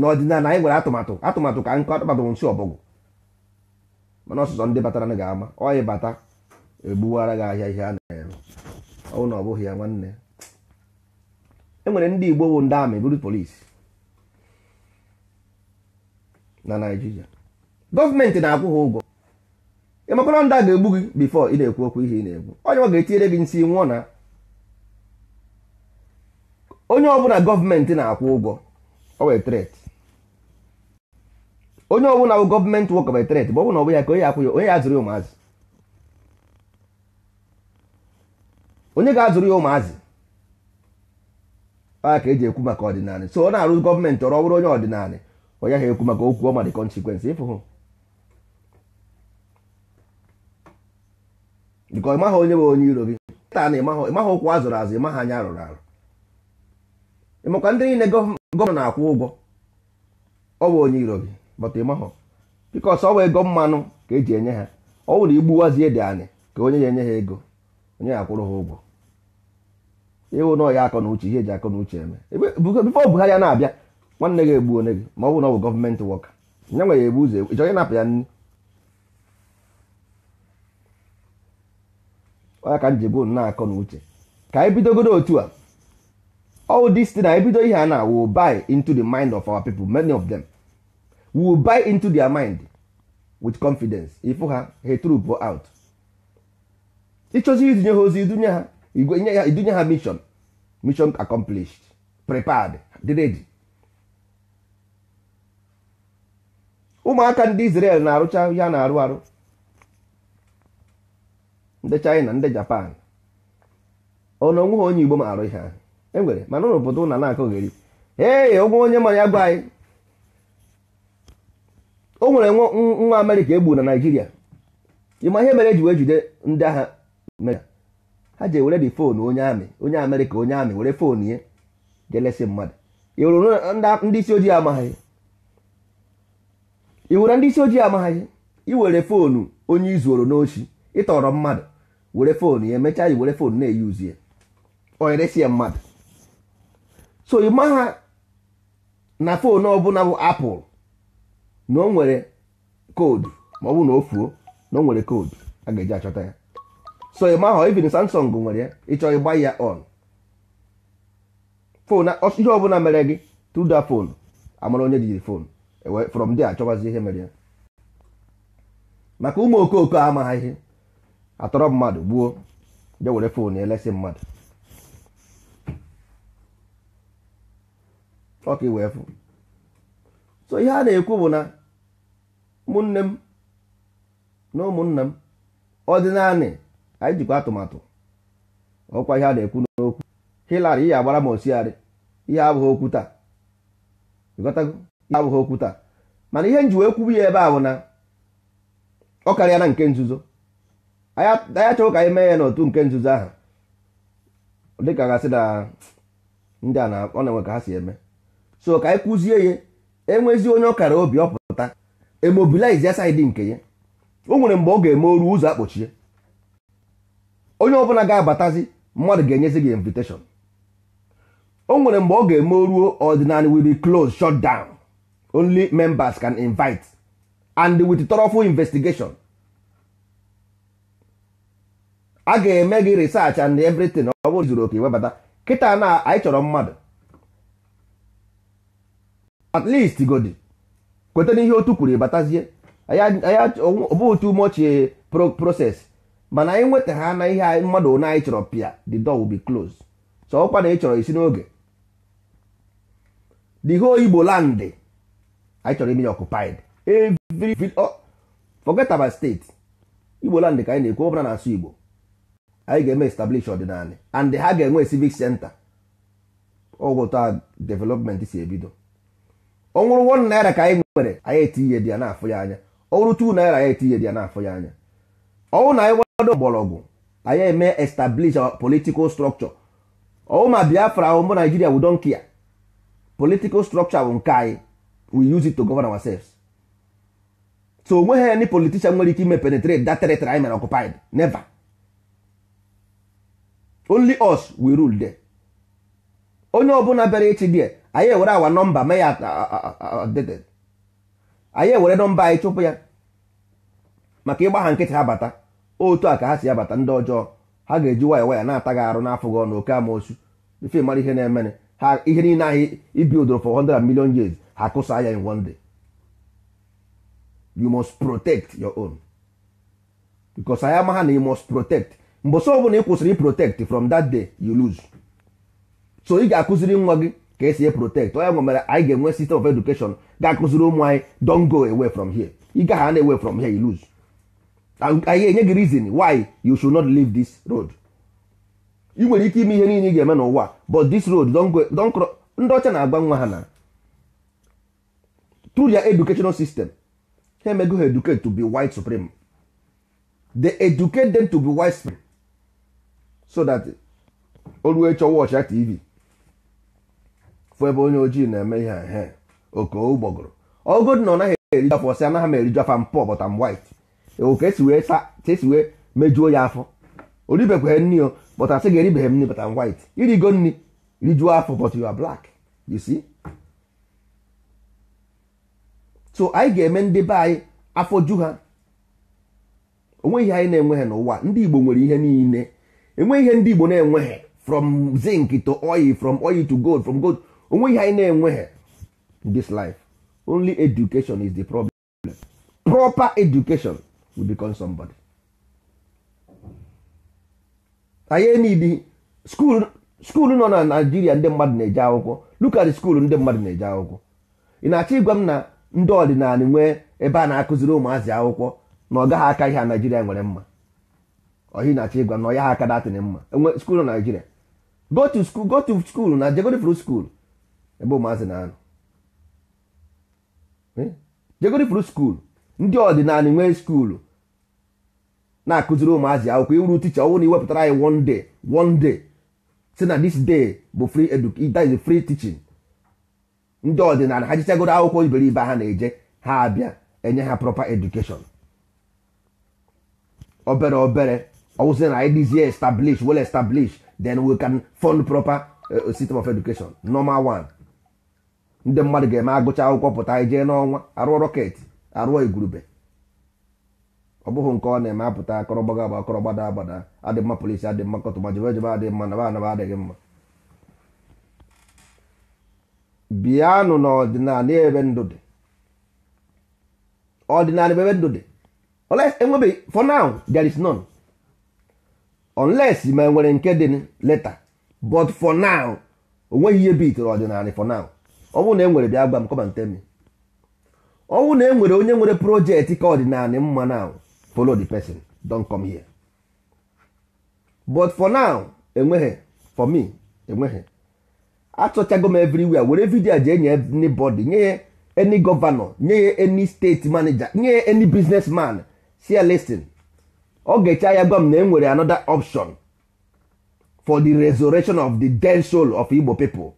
n'ọdịnala anyị nwere atụmatụ atụmatụ ka nkụ atụmatụ nsi ọbọgwụ mana ọsụsọ ndị batara ga-ama ọyị bata egbuwara gị ahịa ihe a na-ere ọwụ na ọ bụghị ya nwanne e nwere ndị Igbo bụ ndị amị buru polisi na Naịjirịa gọọmenti na-akwụ ha ụgwọ ịmakwara ndị a ga-egbu gị bifọ ị na-ekwu okwu ihe ị na-ekwu onye ọ ga-etinyere gị nsị nwụọ na onye ọbụla gọọmenti na-akwụ ụgwọ o wee tret onye ọbụla bụ gọọmenti wọk betreti bụ ọbụla ọbụ ya ka onye akwụ ya onye azụrụ ya ụmụazị onye ga-azụrụ ya ụmụazị a ka eji ekwu maka ọdịnala so ọ na-arụ gọọmenti ọrụ ọbụrụ onye ọdịnala onye ahụ ekwu maka okwu ọma dị konsekwensị ịfụhụ bikọ ịmaghị onye bụ onye iro gị taa na ịmaghị ụkwụ azụrụ azụ ị ịmaghị anya arụrụ arụ ịmakwa ndị niile gọọmenti na-akwụ ụgwọ ọ bụ onye iro gị but ịmahọ ọ bụ ego mmanụ ka eji enye ha ọ wụrụ igbuwazie dị anyị ka onye ya enye ha ego onye ya akwụrụ ha ụgwọ ịwụ na ọya akọ na uche ihe eji akọ na uche eme bifo Buhari ya na-abịa nwanne gị egbu onye gị ma ọ bụ na ọ bụ gọọmenti wọka nya nwe ya ebu ụzọ ịchọ onye napụ ya nri onye ka njibu na-akọ na uche ka anyị bidogodo otu a all this site na ebido ihe a na-awụ buy into the mind of our people many of them. will buy into their mind with confidence ifu ha ha trup out ịchọzi idunye ha ozi idunye ha igwe ya idunye ha mission mission accomplished prepared dị ready ụmụaka ndị Israel na-arụcha ya na-arụ arụ ndị China ndị Japan ọnụ onwe ha onye Igbo ma arụ ihe ahụ enwere mana ụlọ obodo ụna na-akọgheri ee onwe onye manya ya gwa anyị o nwere nwa amerịka egbu na naijiria ịma ihe mere eji wee jide ndị agha ha ji ewere dị foonu onye amị onye amerịka onye amị were foonu ya jelesi mmadụ iwuru ndị isi ojii amaghị iwuru ndị isi ojii amaghị iwere foonu onye izuoro n'ochi ịtọrọ mmadụ were foonu ya emechaa iwere foonu na-eyuzi ya onyeresi ya mmadụ so ịma ha na foonu ọbụla bụ apụl na o nwere koodu ma ọ bụ na o fuo na o nwere koodu a ga-eji achọta ya so ị ma ahụ even Samsung nwere ya ịchọ ịgba ya on fon ihe ọbụla mere gị through that phone amara onye jiri fon e from there achọbazi ihe mere ya maka ụmụ okooko amaghị ihe atọrọ mmadụ gbuo je were fon elesi mmadụ ọka iwee fụ so ihe a na-ekwu bụ na ụmụnne m na ụmụnna m ọdịnanị anyị jikwa atụmatụ ọkwa ihe a na-ekwu n'okwu Hillary ihe agbara m osiarị ihe abụghị okwu taa ihe abụghị okwu taa mana ihe njiwe ekwubu ya ebe a na ọ karịa na nke nzuzo anyị chọrọ ka anyị mee ya n'otu nke nzuzo ahụ dịka gasị na ndị a ọ na-enwe ka ha si eme so ka anyị kụzie ya enwezi onye ọkara obi ọ pụta. emobilize ya saịdị nke ya o nwere mgbe ọ ga-eme oru ụzọ akpọchie onye ọbụla ga-abatazi mmadụ ga-enyezi gị invitation o nwere mgbe ọ ga-eme oruo ordinary will be closed shut down only members can invite and with thoroughful investigation a ga-eme gị research and everything ọ bụrụ zuru oke webata kịta na anyị chọrọ mmadụ at least godi kweta n'ihe otu kwuru batazie ọ bụ otu umeochi e, proses mana anyị nwetara na ihe mmadụ na anyị chọrọ pịa the door will be closed so ọkwa na ị chọrọ isi n'oge the whole Igbo land anyị chọrọ ime ya occupied oh, forget about state Igbo land ka anyị na-ekwu ọbụla na-asụ Igbo anyị ga-eme establish ọdịnala and ha ga-enwe civic center ọgwụta development si ebido ọ nwụrụ one naira ka anyị nwere anyị etinye ihe dị ya n'afọ ya anya ọ nwụrụ two naira anyị etinye dị ya n'afọ ya anya ọwụ na anyị nwado mgbọrọgwụ anyị eme establish our political structure ọwụ ma biafra ahụ mbụ naijiria we don't care political structure bụ nke anyị we use it to govern ourselves so onweghị any politician nwere ike ime penetrate that territory anyị mere occupied never only us we rule there onye ọbụla bịara echi there anyị ewere awa nọmba mee ya updated anyị ewere nọmba anyị chụpụ ya maka ịgba ha nkịtị ha bata otu a ka ha si abata ndị ọjọọ ha ga-eji waya waya na-ata gị arụ n'afọ gị ọnụ oke amoosu ife mara ihe na-emere ha ihe niile ahụ ibi odoro for 100 million years ha kụsa ya in one day you must protect your own because anyị ama ha na you must protect mbọsọ ọbụla ị kwụsịrị protect from that day you lose so ị ga-akụziri nwa gị ka esi e protect onye nwe mere anyị ga-enwe system of education ga-akụziri ụmụ anyị don go away from here you gaghị hand away from here you lose anyị enye gị reason why you should not leave this road ị nwere ike ime ihe niile ị ga-eme n'ụwa but this road don cross ndị ọcha na-agba nwa ha na through their educational system ha emego ha educate to be white supreme they educate them to be white supreme so that olu chọwa ọcha tv fụ ebe onye ojii na-eme ihe he okogbọgụrụ ọgụdị na ọ naghị eriju afọ sị anaghị m eriju afọ mpọ but I'm white oke esi wee ka esi wee mejuo ya afọ oribekwa nri o but asị gị eribeghị m nri but I'm white irigo nni rijuo afọ but you are black you see so anyị ga-eme ndị be anyị afọ ju ha onweghị anyị na-enweghị n'ụwa ndị Igbo nwere ihe niile enweghị ihe ndị Igbo na-enweghị from zinc to oil from oil to gold from gold onwe ihe anyị na-enweghị this life only education is the problem proper education will become somebody anyị need school school nọ na Naijiria ndị mmadụ na-eje akwụkwọ look at ndị mmadụ na-eje akwụkwọ ị na-achọ ịgwa m na ndị ọdịnala nwee ebe a na-akụziri ụmụazị akwụkwọ na ọ gaghị aka ihe a Naijiria nwere mma ọhị na-achọ ịgwa na ọ ya ha aka datịrị mma enwe school na Naijiria go to school go na jegodi fru school ebe ụmụazị na-anọ jegoro ifuru skuulu ndị ọdịnala nwee skuulu na-akụziri ụmụazị akwụkwọ iwuru ticha ọnwụ na iwepụtara anyị one day one day si na this day bụ free education is free teaching ndị ọdịnala ha jichagoro akwụkwọ iberibe ha na-eje ha abịa enye ha proper education obere obere ọwụsị na anyị dịzie establish well established then we can fund proper eh, system of education normal one ndị mmadụ ga-eme agụcha akwụkwọ pụta jee n'ọnwa arụọ rọketị arụọ igurube ọ bụghị nke ọ na-eme apụta akọrọgbaga agba akọrọgbada agbada adị mma polisi adị mma kọtụma jebe jebe adị mma naba anaba adịghị mma bịanụ n'ọdịnala ebe ndụ dị ọdịnala ebe ndụ dị enwebeghị for now there is none unless ma enwere nke dị leta but for now onweghị ihe bitere ọdịnala for now ọnwụ na enwere bịa gwa m kọbantemi ọnwụ na enwere onye nwere projekti ka ọdịnalị mma now follow the person don come here but for now enweghị for me enweghị achọchago m everywhere were vidio ji enye anybody nye ya any governor nye ya any state manịja nye ya any man si ya ọ ga-eche ya gwa m na enwere anọda option for the resurrection of the dead soul of Igbo people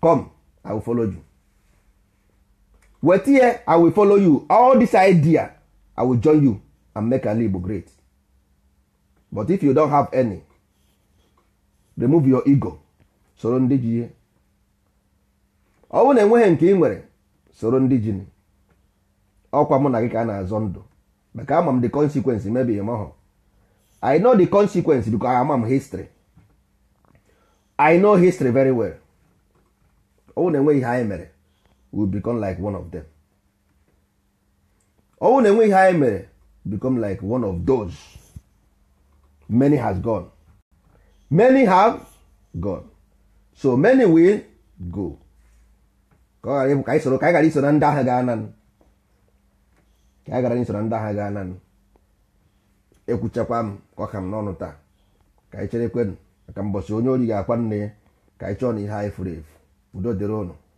come i will follow you wet here i will follow you all this idea i will join you and make ala igbo great but if you don't have any remove your ego soro ndị ji ihe ọ bụrụ na enweghị nke ị nwere soro ndị ji ọkwa mụ na gị ka a na-azọ ndụ maka ama m the consequence maybe ị mahụ i know the consequence because i am history i know history very well ọnwụ na-enwe ihe anyị mere we become like one of them ọnwụ na-enwe ihe anyị mere become like one of those many has gone many have gone so many will go ka ọ ghara ịbụ ka anyị soro ka anyị ghara iso na ndị agha gaa nanụ ka anyị ghara iso na ndị agha gaa nanụ ekwuchakwa m ka ọ ka m n'ọnụ taa ka anyị chere ekwenụ maka mbọsị onye ori ga-akwa nne ya ka anyị chọọ na ihe anyị furu efu udo dịrị ụnụ